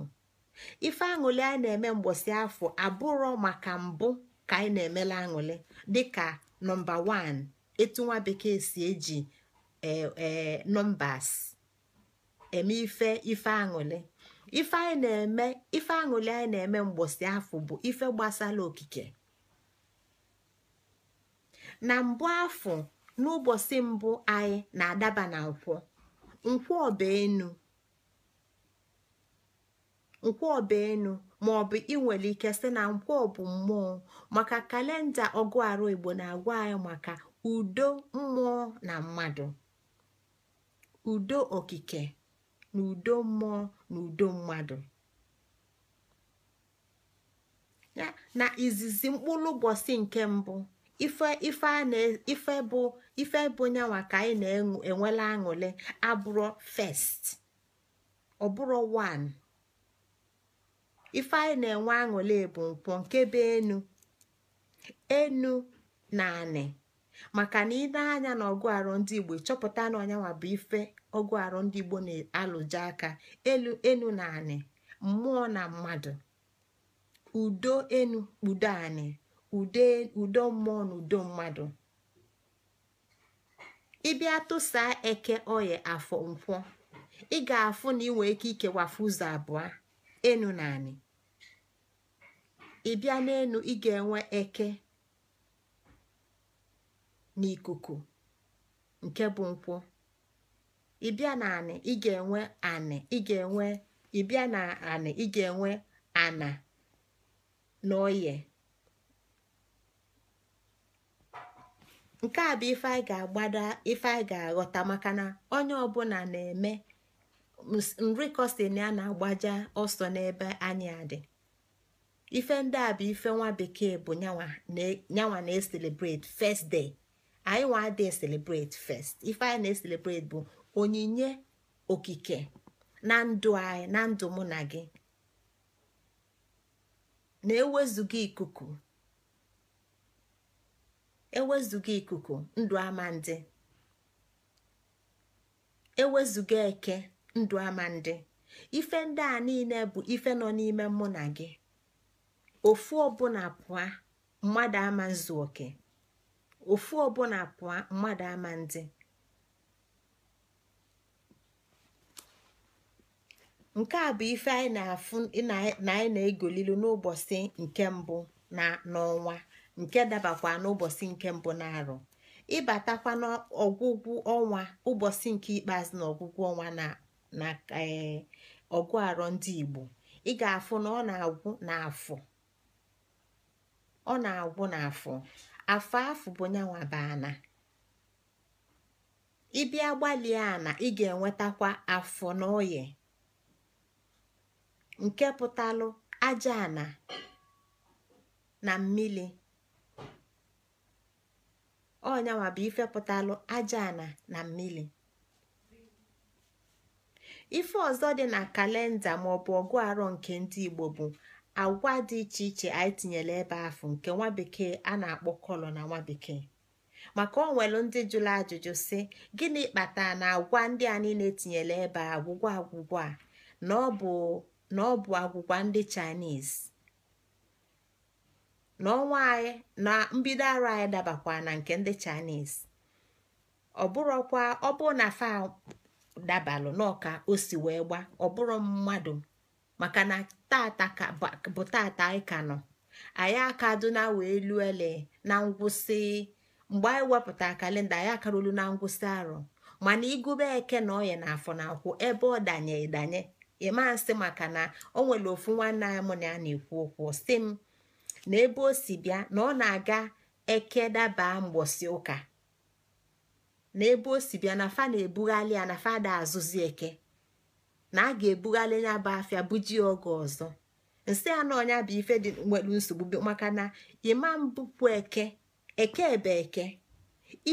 ife aṅụlị anyị na-eme mgbọsị afọ abụrọ maka mbụ ka anyị na-emela aṅụlị dịka nọmba 1 etu nwa bekee si eji ee nọmbas eme ife ife aṅụlị ife anyị na-eme ife aṅụlị anyị na-eme mgbosi afọ bụ ife gbasara okike na mbụ afọ n'ụbọchị mbụ anyị na-adaba na nkwọ nkwọ ọba nkwọ ma ị ike sị na nkwọ bụ mmụọ maka kalenda ọgụ arụ Igbo na-agwa anyị maka udo mmụọ na mmadụ udo okike na udo mmụọ na udo mmadụ na izizi mkpụrụ ụbọchị nke mbụ ife ife bụ ife bụ nyanwa ka anyị na-enwela aṅụle abụrụ first ọ bụrụ ife anyị na-enwe aṅụle bụ mkpọ nke be enu enu na anị maka na ị na-anya na ọgụ arụ ndị igbo chọpụta na ọnyanwa bụ ife ọgụ arụ ndị igbo na-alụje aka elu enu na anị mmụọ na mmadụ udo enu kpudo udo mmụọ na udo mmadụ ịbịa tụsaa eke oye afọ nkwọ ị ga-afụ na inwe ike ikewafu ụzọ abụọ enu na anị ịbịa n'enu ị ga-enwe eke n'ikuku nke bụ nkwụ ịbịa na anị ị enwe anị ị ga-enwe ịbịa na anị ị ana na oye nke a bụ ife anyị ga agbada ife anyị ga-aghọta maka na onye ọbụla na-eme nrikosin a na-agbaja ọsọ n'ebe anyị adị ife ndị a bụ ife nwa bekee bụ nyanwa na first day anyị nwa adị celebrate first ife anyị na-eselebrate bụ onyinye okike na ndụ anyị na ndụ mụ na gị na-ewezuga ikuku ewezuga ikuku ndụ ama ndị ewezuga eke ndụ ama ndị ife ndị a niile bụ ife nọ n'ime mụ na gị ofu ọbụla pụa mmadụ ama nzu oke ofu ọbụla pụa mmadụ ama ndị nke a bụ ife anyị na-afụ na anyị na-egolilu n'ụbọchị nke mbụ na n'ọnwa nke dabakwa n'ụbọchị nke mbụ na-arụ ịbatakwa n'ọgwụgwụ ọnwa ụbọchị nke ikpeazụ na ọgwụgwụ ọnwa na ee eh, ọgụ arọ ndị Igbo ị ga-afụ na ọ na-agwụ n'afọ ọ na-agwụ n'afọ afọ afọ bụ nyanwa baana ịbịa gbalịa ana ị ga-enwetakwa afọ na oye nke pụtalụ aja ana na mmiri ọnyanwa bụ ifepụtalụ aja ana na mmiri ife ọzọ dị na kalenda maọbụ ọgụ arọ nke ndị igbo bụ agwa dị iche iche anyị tinyere ebe afụ nke nwa bekee a na-akpọ kọlọ na nwa bekee maka ọ nwere ndị jụrụ ajụjụ sị gịnị kpatara na agwa ndị a niile tinyere ebe agwụgwọ agwụgwọ a na ọ bụ agwụgwa ndị chinese na ọnwa anyị na mbido arụ anyị dabakwa na nke ndị Chinese ọ bụrụkwa ọ bụ na fa dabalụ n'ọka o si wee gba ọ bụrụ mmadụ maka na tata bụ tata anyị ka nọ anyị akaduna wee ele na ngwụsị mgbe anyị wepụta kalenda anyị akarụlu na ngwụsị arọ mana igube eke na ọya na afọ na akwụ ebe ọ danye danye ịma nsị maka na o nwere ofu nwanne anyị mụ na ya na-ekwu okwu si m na ebe o si bịa na ọ na-aga ekedaba mgbọsi ụka na ebe o si bịa na fa na-ebughalị ya na fada azụzi eke na a ga-ebughalị ya bụ afịa buji oge ọzọ nsị na ọnya bụ ife dị nwere nsogbu maka na ịma mbupụ eke eke ebe eke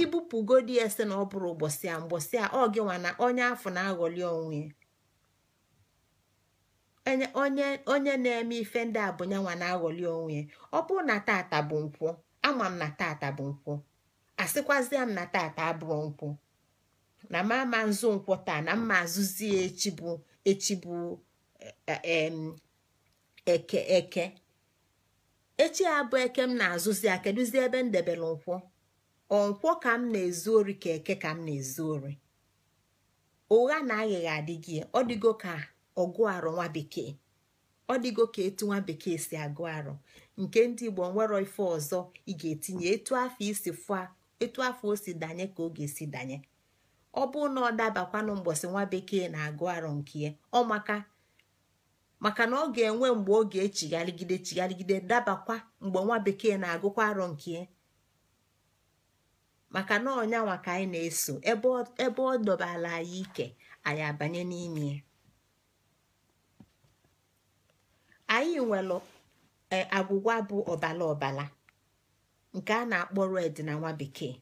ibupụgodi ese na ọ bụrụ ụbọchị a mgbọsị a ọ na onya afọ na-aghọli onwe ya onye onye na-eme ife ndị a bụ nyanwa na-aghọli onwe ya ọ bụrụ na tata bụ nkwụ ama m na tata bụ nkwụ asịkwazịa m na tata abụọ nkwụ na m ama nzu nkwụ taa na mma azụzi ya echi bụ echi bụ e, e, eke eke echi abụ eke m na-azụzi ya kedụzi ebe m debere nkwụ ọnkwọ ka m na-ezu ori ka eke ka m na-ezu ori ụgha na aghịgha adịghị ọ dịgo ka ọgụ arụ nwa bekee ọ dịgo ka etu nwa bekee si agụ arụ nke ndị igbo nwere ife ọzọ ị ga-etinye etu afọ isi fụa etu afọ o si danye ka ọ ga-esi danye ọ bụ na ọ dabakwanụ mgbọsị nwa bekee na-agụ arụ nke ya ọ maka maka na ọ ga-enwe mgbe ọ ga-echigharịgide chigharịgide dabakwa mgbe nwa bekee na-agụkwa arụ nke ya maka na ọnyanwa ka anyị na-eso ebe ọ dọbala anyị ike anyị abanye n'ime anyị nwelụ e, agwụgwa bụ ọbala ọbala nke a na-akpọ red na nwa bekee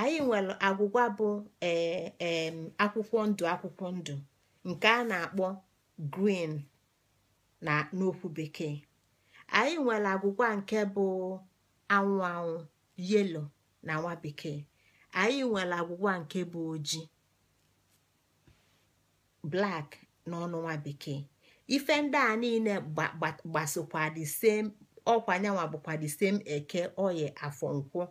anyị nwere agwụgwa bụ e, e, akwụkwọ ndụ akwụkwọ ndụ nke a na-akpọ griin na n'okwu bekee anyị nwere agwụgwa nke bụ anwụ anwụ yelo na nwa bekee anyị nwere agwụgwa nke bụ ojii na n'ọnụ nwa bekee ife ndị a niile gbasokwa the same ọkwa nyanwa bụkwa the same eke oye afọnkwọ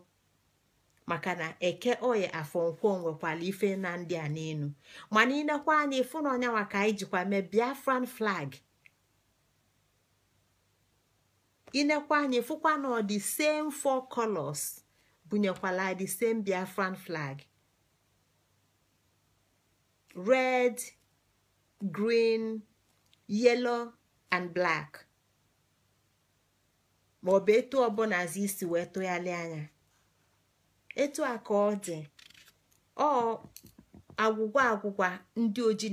maka na eke oye afọnkwọ nwekwara ife na ndị a n'elu mana inekwa anya ịfụ na ọnyanwa ka anyị jikwa mee biafran flag inekwa anya ịfụkwa na ọ dị same four colors bunyekwala the same biafran flag red green yellow and black bụ etu ọbụla azụ isi wee tụgharịa anya etu a ka ọ dị ọ agwụgwa agwụgwa ndị oji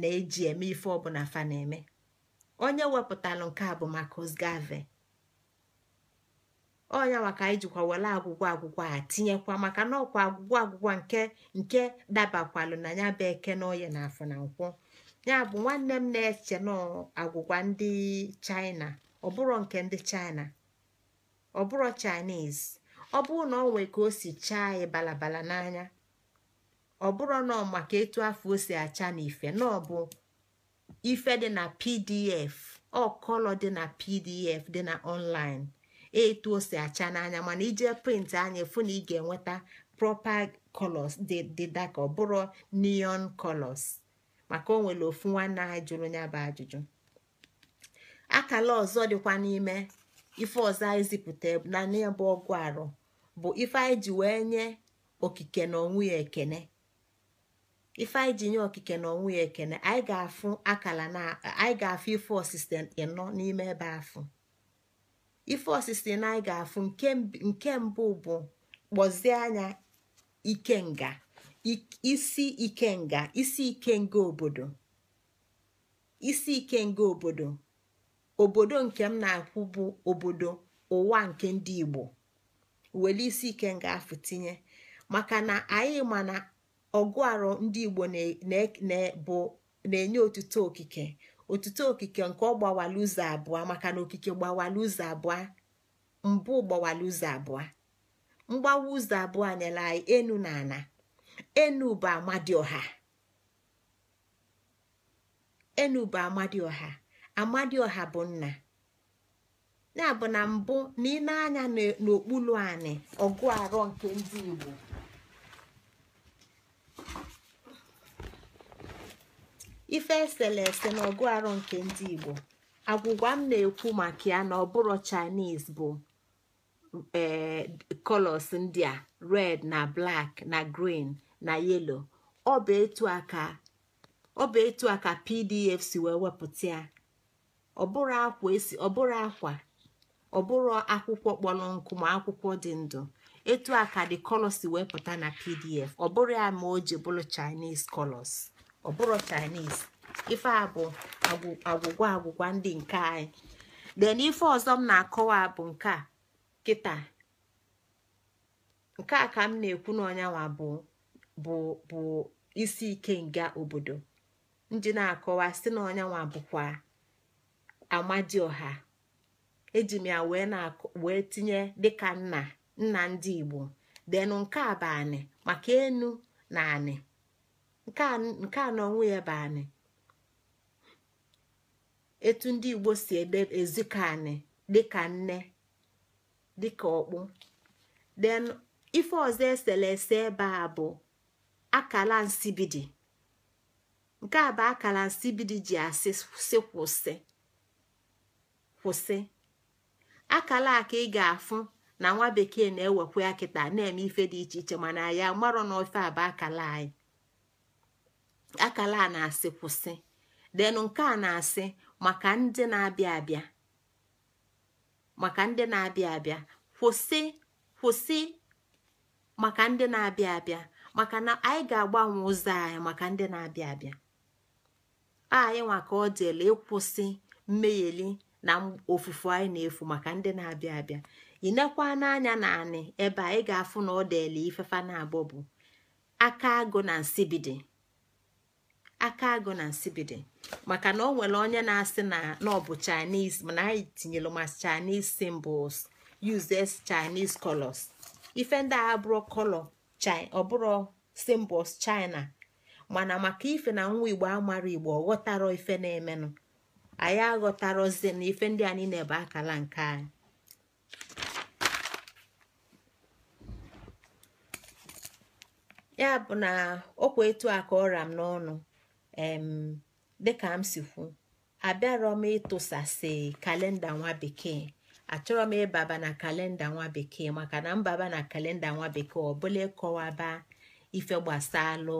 na-eji eme ife ọbụla fa na-eme onye wepụtalụ nke a bụ Marcus Garvey onya maka anyị jikwa were agwụgwọ agwụgwọ a tinyekwa maka na ọkwa agwụgwọ agwụgwọ nke nke dabakwalụ na ya bụ eke na oye na afọ na nkwụ ya bụ nwanne m na-eche n'agwụgwa ndị China ọbụrụ nke ndị China ọbụrụ Chinese ọ bụrụ na ọ nwee ka o si chaa anyị balabala n'anya ọ bụrụ na maka etu afọ o si acha na ife na ọ bụ ife dị na pdf ọ kọlọ dị na pdf dị na online etu o si acha n'anya mana ije print anya fụ na ị ga-enweta proper colors dị dịda ka ọ bụrụ neon colors maka o nwere ofu nwanne ha jụrụ ya bụ ajụjụ akala ọzọ dịkwa n'ime ife ọzọ anyị zipụta na n'ebe ọgụ arụ bụ ife anyị ji wee nye okike na onwe ya ekene ife anyị ji nye okike na onwe ya ekene anyị ga-afụ akala na anyị ga-afụ ife osise ịnọ n'ime ebe afụ ife osisi na anyị ga-afụ nke mbụ bụ kpọzie anya nga. isi ikenga isi ikenga obodo obodo obodo nke m na-akwụ bụ obodo ụwa nke ndị Igbo were isi ikenga afụ tinye maka na anyị ma na ọgụ ndị Igbo na-enye otuto okike otuto okike nke ọ gbawala ụzọ abụọ maka na okike gbawala ụzọ abụọ mbụ gbawala ụzọ abụọ mgbawa ụzọ abụọ nyere anyị enu na ana enuba amadioha enuba amadioha ọha bụ nna ya bụ na mbụ na ị anya n'okpuru anị ọgụ arọ nke ndị Igbo ife esere ese na ọgụ arọ nke ndị Igbo agwụgwa m na-ekwu maka ya na ọbụrụ Chinese bụ ee eh, colors ndị a red na black na green na yelo ọ bụ etu a ka pdf si wee wepụta ya ọbụrụ akwa esi ọbụrụ akwa ọbụrụ akwụkwọ kpọrọ nkụ ma akwụkwọ dị ndụ etu a ka the colors si wee pụta na pdf ọ bụrụ ya ma o ji bụrụ chinese ọ bụrụ chinese ife a bụ agwụgwa agwụgwa ndị nke anyị then ife ọzọ m na-akọwa bụ nke a kịta nke a ka m na-ekwu n'ọnyanwa bụ bụ isi ike nga obodo ndị na-akọwa si na ọnyanwa bụkwa amadioha eji m ya wee tinye dịka nna nna ndị igbo denu nke a bụ maka enu na anị nke a n'onwe ya bụ anị etu ndị igbo si ezuka anị dịka nne dịka ọkpụ den ife ọzọ eselese ebe a bụ akala nsibidi nke a bụ akala nsibidi ji asị sị kwụsị kwụsị akala a ka ị ga-afụ na nwa bekee na-ewekwa ya kịta na-eme ife dị iche iche mana ya marọ na ofe a bụ akala anyị akala a na-asị kwụsị denụ nke a na-asị maka ndị na-abịa abịa maka ndị na-abịa abịa kwụsị kwụsị maka ndị na-abịa abịa maka na anyị ga-agbanwe ụzọ anyị maka ndị na-abịa abịa anyị nwa ka ọ dịela ịkwụsị mmegheli na ofufu anyị na-efu maka ndị na-abịa abịa ị nekwa n'anya na anị ebe anyị ga-afụ na ọ dịela ifefa na-abọ bụ aka agụ na nsibidi aka agụ na nsibidi maka na onwere nwere onye na-asị na ọ bụ chinese mana anyị tinyere ma chinese symbols uses chinese colors ife ndị agha abụrụ color china ọbụrụ symbols china mana maka ife na nwa igbo amara igbo ọghọtara ife na-emenụ anyị aghọtarozi na ife ndị a na akala nke anyị ya bụ na okwa etu a ka ọra m n'ọnụ dịka m si kwu abịarọ m ịtụsasị kalenda nwa bekee achọrọ m ịbaba na kalenda nwa bekee maka na mbaba na kalenda nwa bekee ọ ịkọwaba ife gbasalụ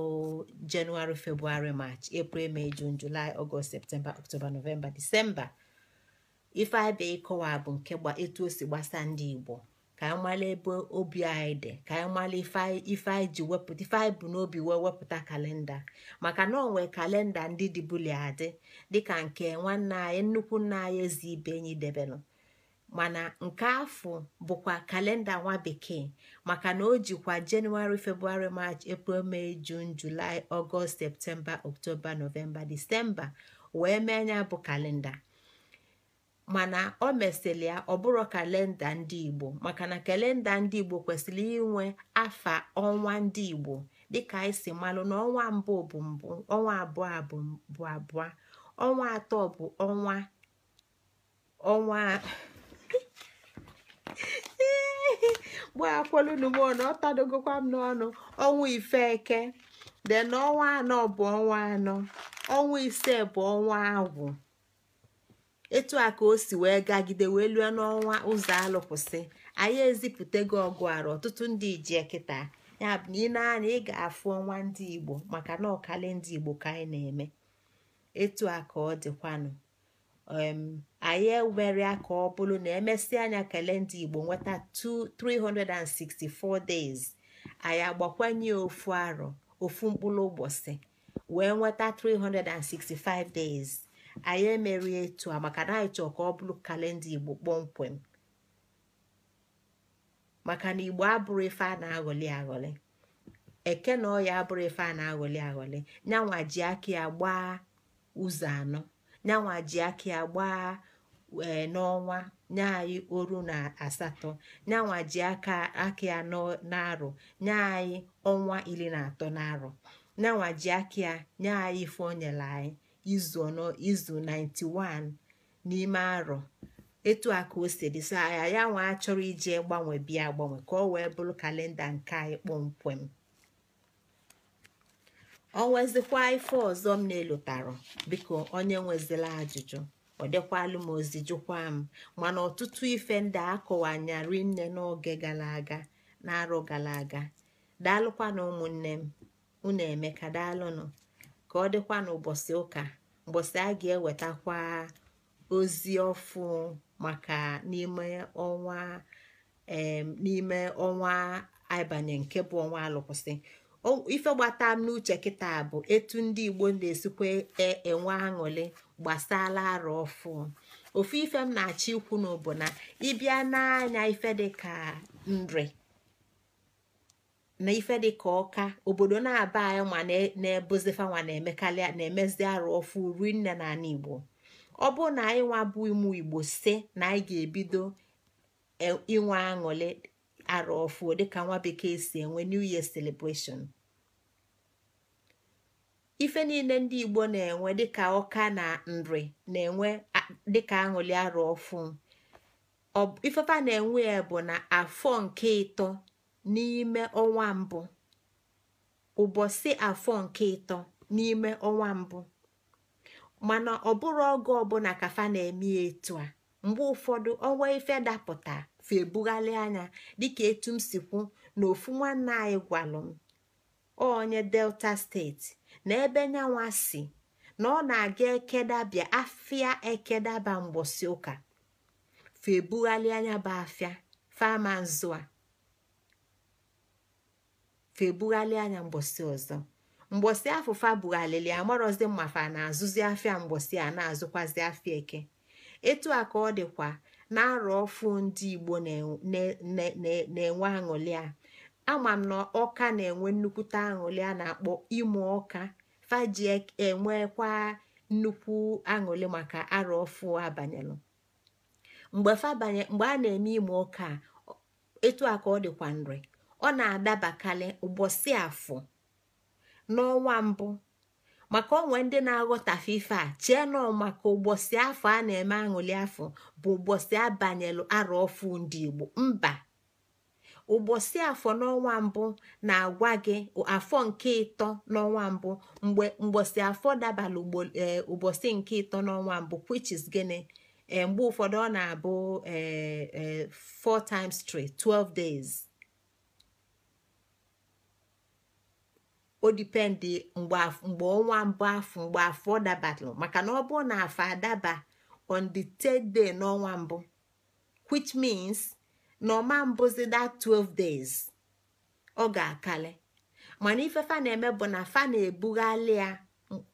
jenụwarị febụwarị march april may jun julai ọgọst septemba ọktoba nọvemba disemba ife abịa ịkọwa bụ nke etu o si gbasa ndị igbo ka anyị mara ebe obi anyị dị ka anyị mara ife anyị ji wepụta ife anyị bụ n'obi wee wepụta kalenda maka na onwe kalenda ndị dịbuli adị dịka nke nwanne anyị nnukwu nna anyị ezi ibe enyi debelụ mana nke afọ bụkwa kalenda nwa bekee maka na o jikwa jenụwarị febrụwarị march april mee jun julai ọgọst septemba oktoba nọvemba disemba wee mee anya bụ kalenda mana o mesịrị ya ọ kalenda ndị igbo maka na kalenda ndị igbo kwesịrị inwe afa ọnwa ndị igbo dịka anyị si malụ na ọnwa mbụ bụ mbụ ọnwa abụọ bụ abụọ ọnwa atọ bụ ọnwa gbaakwolunumona ọ tadogokwa m n'ọnụ ọnwa ifeke de na ọnwa anọ bụ ọnwa anọ ọnwa ise bụ ọnwa agwụ etu a ka o si wee gagide wee lue n'ọnwa ụzọ alụkwụsị anyị ezipụtago ọgụ arụ ọtụtụ ndị ijie kịta ya bụ na ị na ị ga-afụ ọnwa ndị igbo maka na ọkali ndị igbo ka anyị na-eme etu a ka ọ dịkwanụ Um, anyị ewere ka ọ bụrụ na emesịa anya kalenda Igbo nweta 364 days anyị agbakwanye ofu arọ ofu mkpụrụ ụbọchị wee nweta 365 days anyị emerie etu a maka na anyị chọọ ka ọ bụrụ kalenda Igbo kpọmkwem maka na Igbo abụrụ ife a na-aghọli aghọli eke na ọya abụrụ ife a na-aghọli aghọli nyanwa ji aka ya gbaa ụzọ anọ nyanwa ji aka ya e, n'ọnwa nye anyị oru na asatọ nyanwa ji aka aka ya n'arọ nye anyị ọnwa iri na atọ na nyanwa ji aki ya nye anyị ife nyere anyị izu ọnọ izu 91 n'ime arọ etu a ka o siri saa ya ya nwa achọrọ ije gbanwe bịa gbanwe ka ọ wee bụrụ kalenda nke anyị kpọmkwem ọ nwezikwa ife ọzọ m na-elotara biko onye nwezila ajụjụ ọ dịkwalụ m ozi m mana ọtụtụ ife ndị akọwanyarị nne n'oge gara aga na-arụ gara aga daalụkwa na ụmụnne m unu emeka daalụnụ ka ọ dịkwa n'ụbọchị ụka mbọsị a ga-ewetakwa ozi ọfụ maka n'ime ọnwa n'ime ọnwa abalị nke bụ ọnwa alụkwụsị ife gbata m n'uche kịta bụ etu ndị igbo na-esikwa e, enwe aṅụli gbasala arụ ọfụ ofu ife m na-achọ ikwu n'obo na ịbịa n'anya ife dịka nri na ife dịka ọka obodo na-aba anyị ma na-ebozifa na-emekarị na-emezi arụ ọfụ ri nne na ala igbo ọ bụ na anyị nwa bụ igbo si na anyị ga-ebido e, inwe aṅụli. araọfuo dịka nwa bekee si enwe new year celebration ife niile ndị igbo na-enwe dịka ọka na nri na-enwe dịka aṅụli araọfụ ifefa na-enwe ya bụ na afọ nke ịtọ n'ime ọnwa mbụ ụbọchị afọ nke ịtọ n'ime ọnwa mbụ mana ọ bụrụ oge ọbụla kafa na-eme etu a mgbe ụfọdụ ọnwa ife dapụta efe ebughalị anya dịka etu m si kwu na ofu nwanne anyị gwalụ m onye delta steeti na ebe nyanwa si na ọ na-aga ekedabịa afịa ekedaba mgbọsi ụka fe ebughalị anya bụ afịa fama a fa ebughalị anya mgbọsi ọzọ mgbọsi afụfa bughalịlị amarọzi mmafa na-azụzi afịa mgbọsi a na-azụkwazi afịa eke etu a ka ọ dịkwa na arọ ọfụ ndị igbo na-enwe aṅụlị a ama m na ọka na-enwe nnukwute aṅụlị a na-akpọ ịmụ ọka faji e, enwekwa nnukwu aṅụlị maka arọ ọfụ abanyelụ mgbe a na-eme ịmụ ọka etu a ka ọ dịkwa nri ọ na-adabakarị ụbọchị afọ n'ọnwa mbụ maka onwe ndị na aghota fifa a chie maka ụbọchị afọ a na-eme aṅụli afọ bụ ụbọchị abanyelu arọ ọfụ ndị Igbo mba ụbọchị afọ n'ọnwa mbụ na-agwa gị afọ nke ịtọ n'ọnwa mbụ mgbe mgbọsị afọ dabara e, ụbọchị nke ịtọ n'ọnwa mbụ which gịnị e, mgbe ụfọdụ ọ na-abụ 4 e, times 3 12 days odipendi mgbe ọnwa mbụ afọ mgbe afọ dabatalụ maka na ọ na afọ adaba on the third day n'ọnwa mbụ which means na ọma mbụzi that 12 days ọ ga-akali mana ife fa na-eme bụ na fa na ebughali ya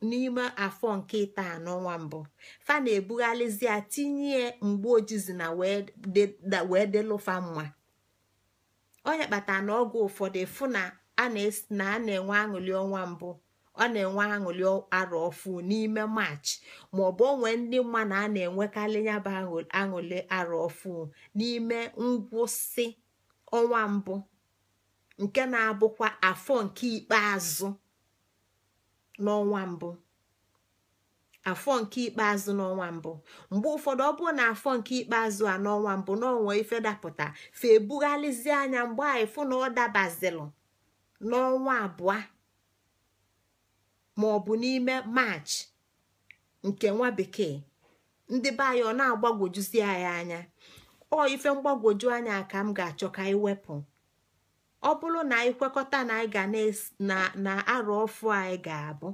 n'ime afọ nke taa n'ọnwa mbụ fa na-ebughalịzi ya tinye mgbe ojizi na wee delụfa mma onye kpatara na ọgwụ ụfọdụ fụ a na-enwe aṅụli ọnwa mbụ ọ na-enwe aṅụli arọ ọfụ n'ime maachị maọbụ onwe ndị mma na a na-enwekarị ya bụ aṅụli arọ ọfụ n'ime ngwụsị ọnwa mbụ nke na-abụkwa afọ nke ikpeazụ n'ọnwa mbụ afọ nke ikpeazụ n'ọnwa mbụ mgbe ụfọdụ ọ bụrụ na afọ nke ikpeazụ a n'ọnwa mbụ n'ọnwa ife dapụta fe anya mgbe anyị fụ na ọ dabazilụ n'ọnwa abụọ ma ọ bụ n'ime maachị nke nwa bekee ndị be anyị ọ na-agbagwojuzi anyị anya ọ ife mgbagwoju anya ka m ga-achọ ka anyị wepụ ọ bụrụ na anyị kwekọta na anyị ga na arụ ọfụ anyị ga-abụ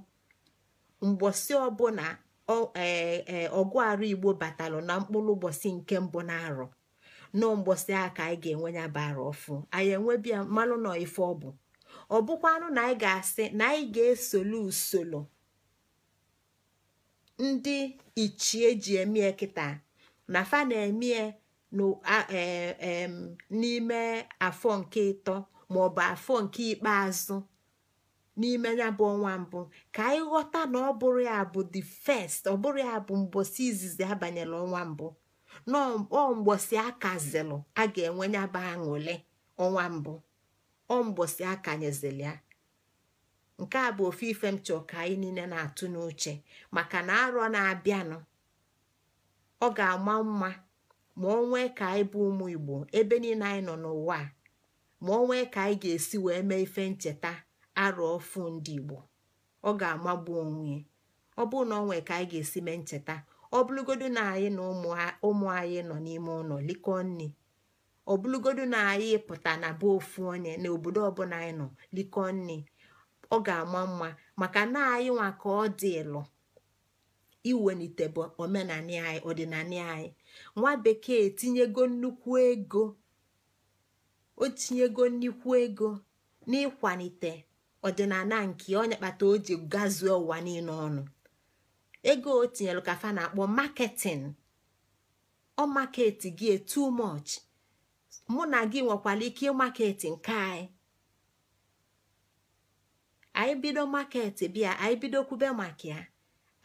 mgbọsị ọbụla e, e, ọgụ arụ igbo batalụ na mkpụrụ ụbọchị nke mbụ na arọ nọọ mgbọsị aka anyị ga-enwe ya bara ọfụ anyị enwebia mmanụ na ife ọ bụ ọ bụkwanụ na anyị ga-asị na anyị ga-esolu usoro ndị ichie ji emie kịta na fa na-emie e, e, n'ime afọ nke ịtọ maọbụ afọ nke ikpeazụ n'ime ya bụ ọnwa mbụ ka anyị ghọta na ọ bụrụ ya bụ the first ọ bụrụ ya bụ mbosi izizi abanyela ọnwa mbụ ọ mgbosi akazilụ a ga-enwe ya aṅụle ọnwa mbụ ọ mbọsị akanyezili ya nke a bụ ofu ife m chọọ ka anyị niile na-atụ n'uche maka na arọ na-abịanụ ọ ga-ama mma ma ọ nwee ka anyị bụ ụmụ Igbo ebe niile anyị nọ n'ụwa ma ọ nwee ka anyị ga-esi wee mee ife ncheta arọ ọfụ ndị Igbo ọ ga-amagbu onwe ọ bụrụ na ọ nwee ka anyị ga-esi mee ncheta ọ bụrụgodu na anyị na ụmụ anyị nọ n'ime ụlọ likọ nri ọbụlụgodu na anyị pụta na be ofu onye na obodo ọbụla anyị nọ likọ nne ọ ga-ama mma maka na anyị nwa ka ọ dị ịlụ iwelite bụ omenani anyị ọdịnala anyị nwa bekee etinyego nnukwu ego o tinyego nnukwu ego n'ịkwalite ọdịnala nke onye kpata o ji gazuo ụwa niile ọnụ ego o kafa ka na-akpọ marketing ọ maketi gị too much mụ na gị nwekwara ike ịmaketi nke anyị anyị bido maketi bịa anyị bido kwube maka ya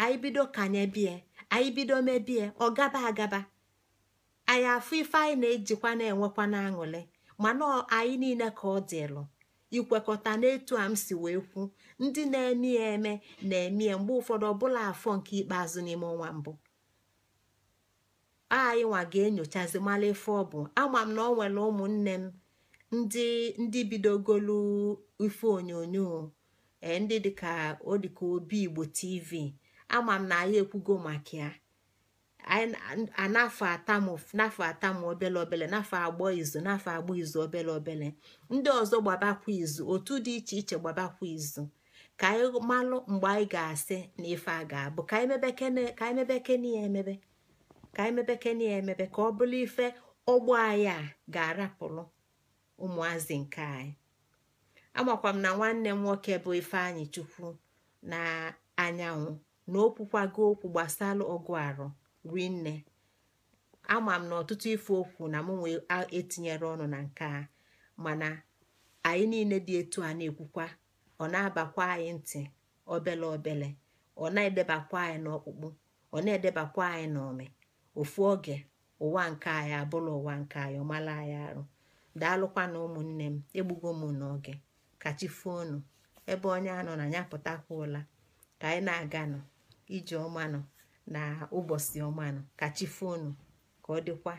anyị bido kanye bie anyị bido mebie ọ gaba agaba anyị afụ ife anyị na-ejikwa na-enwekwa n'aṅụrị mana anyị niile ka ọ dịlụ ikwekọta n'etu a m si wee kwu ndị na-eme ya eme na-eme ya mgbe ụfọdụ ọbụla afọ nke ikpeazụ n'ime ọnwa mbụ nwa ga-enyochazi mala ife ọ bụ ama m na ọ nwere ụmụnne m ndị ndị bidogolu ife onyonyo eh, ndị dịka ọ dịka obi igbo tv ama m na anyị ekwugo maka ya anafọ atamụ n'afọ atamụ obele obele n'afọ agbọ izu n'afọ agbọ izu obele obele ndị ọzọ gbabakwa izu otu dị iche iche gbabakwa izu ka anyị malụ mgbe anyị ga-asị na ife a ga-abụ ka anyị mebekene ya emebe ka anyị na ya emepe ka ọ bụrụ ife ọgbọ anyị a ga-arapụrụ ụmụazị nke anyị amakwa m na nwanne m nwoke bụ Ifeanyị Chukwu na anyanwụ na okwukwago okwu gbasara ọgụ arụ rinne ama m na ọtụtụ ife okwu na mụ nwee etinyere ọnụ na nke a mana anyị niile dị etu a na-ekwukwa ọ na-abakwa anyị ntị obele obele ọ na-edebakwa anyị n'ọkpụkpụ ọ na-edebakwa anyị n'ome ofu oge ụwa nke anyị abụla ụwa nke anyị ọmala anyị arụ daalụkwa na ụmụnne m egbugo m n'oge fonu ebe onye anọ na ya pụtakwuola ka anyị na-aganụ aga ije ọmanụ na ụbọchị ọmanụ fonu ka ọ dịkwa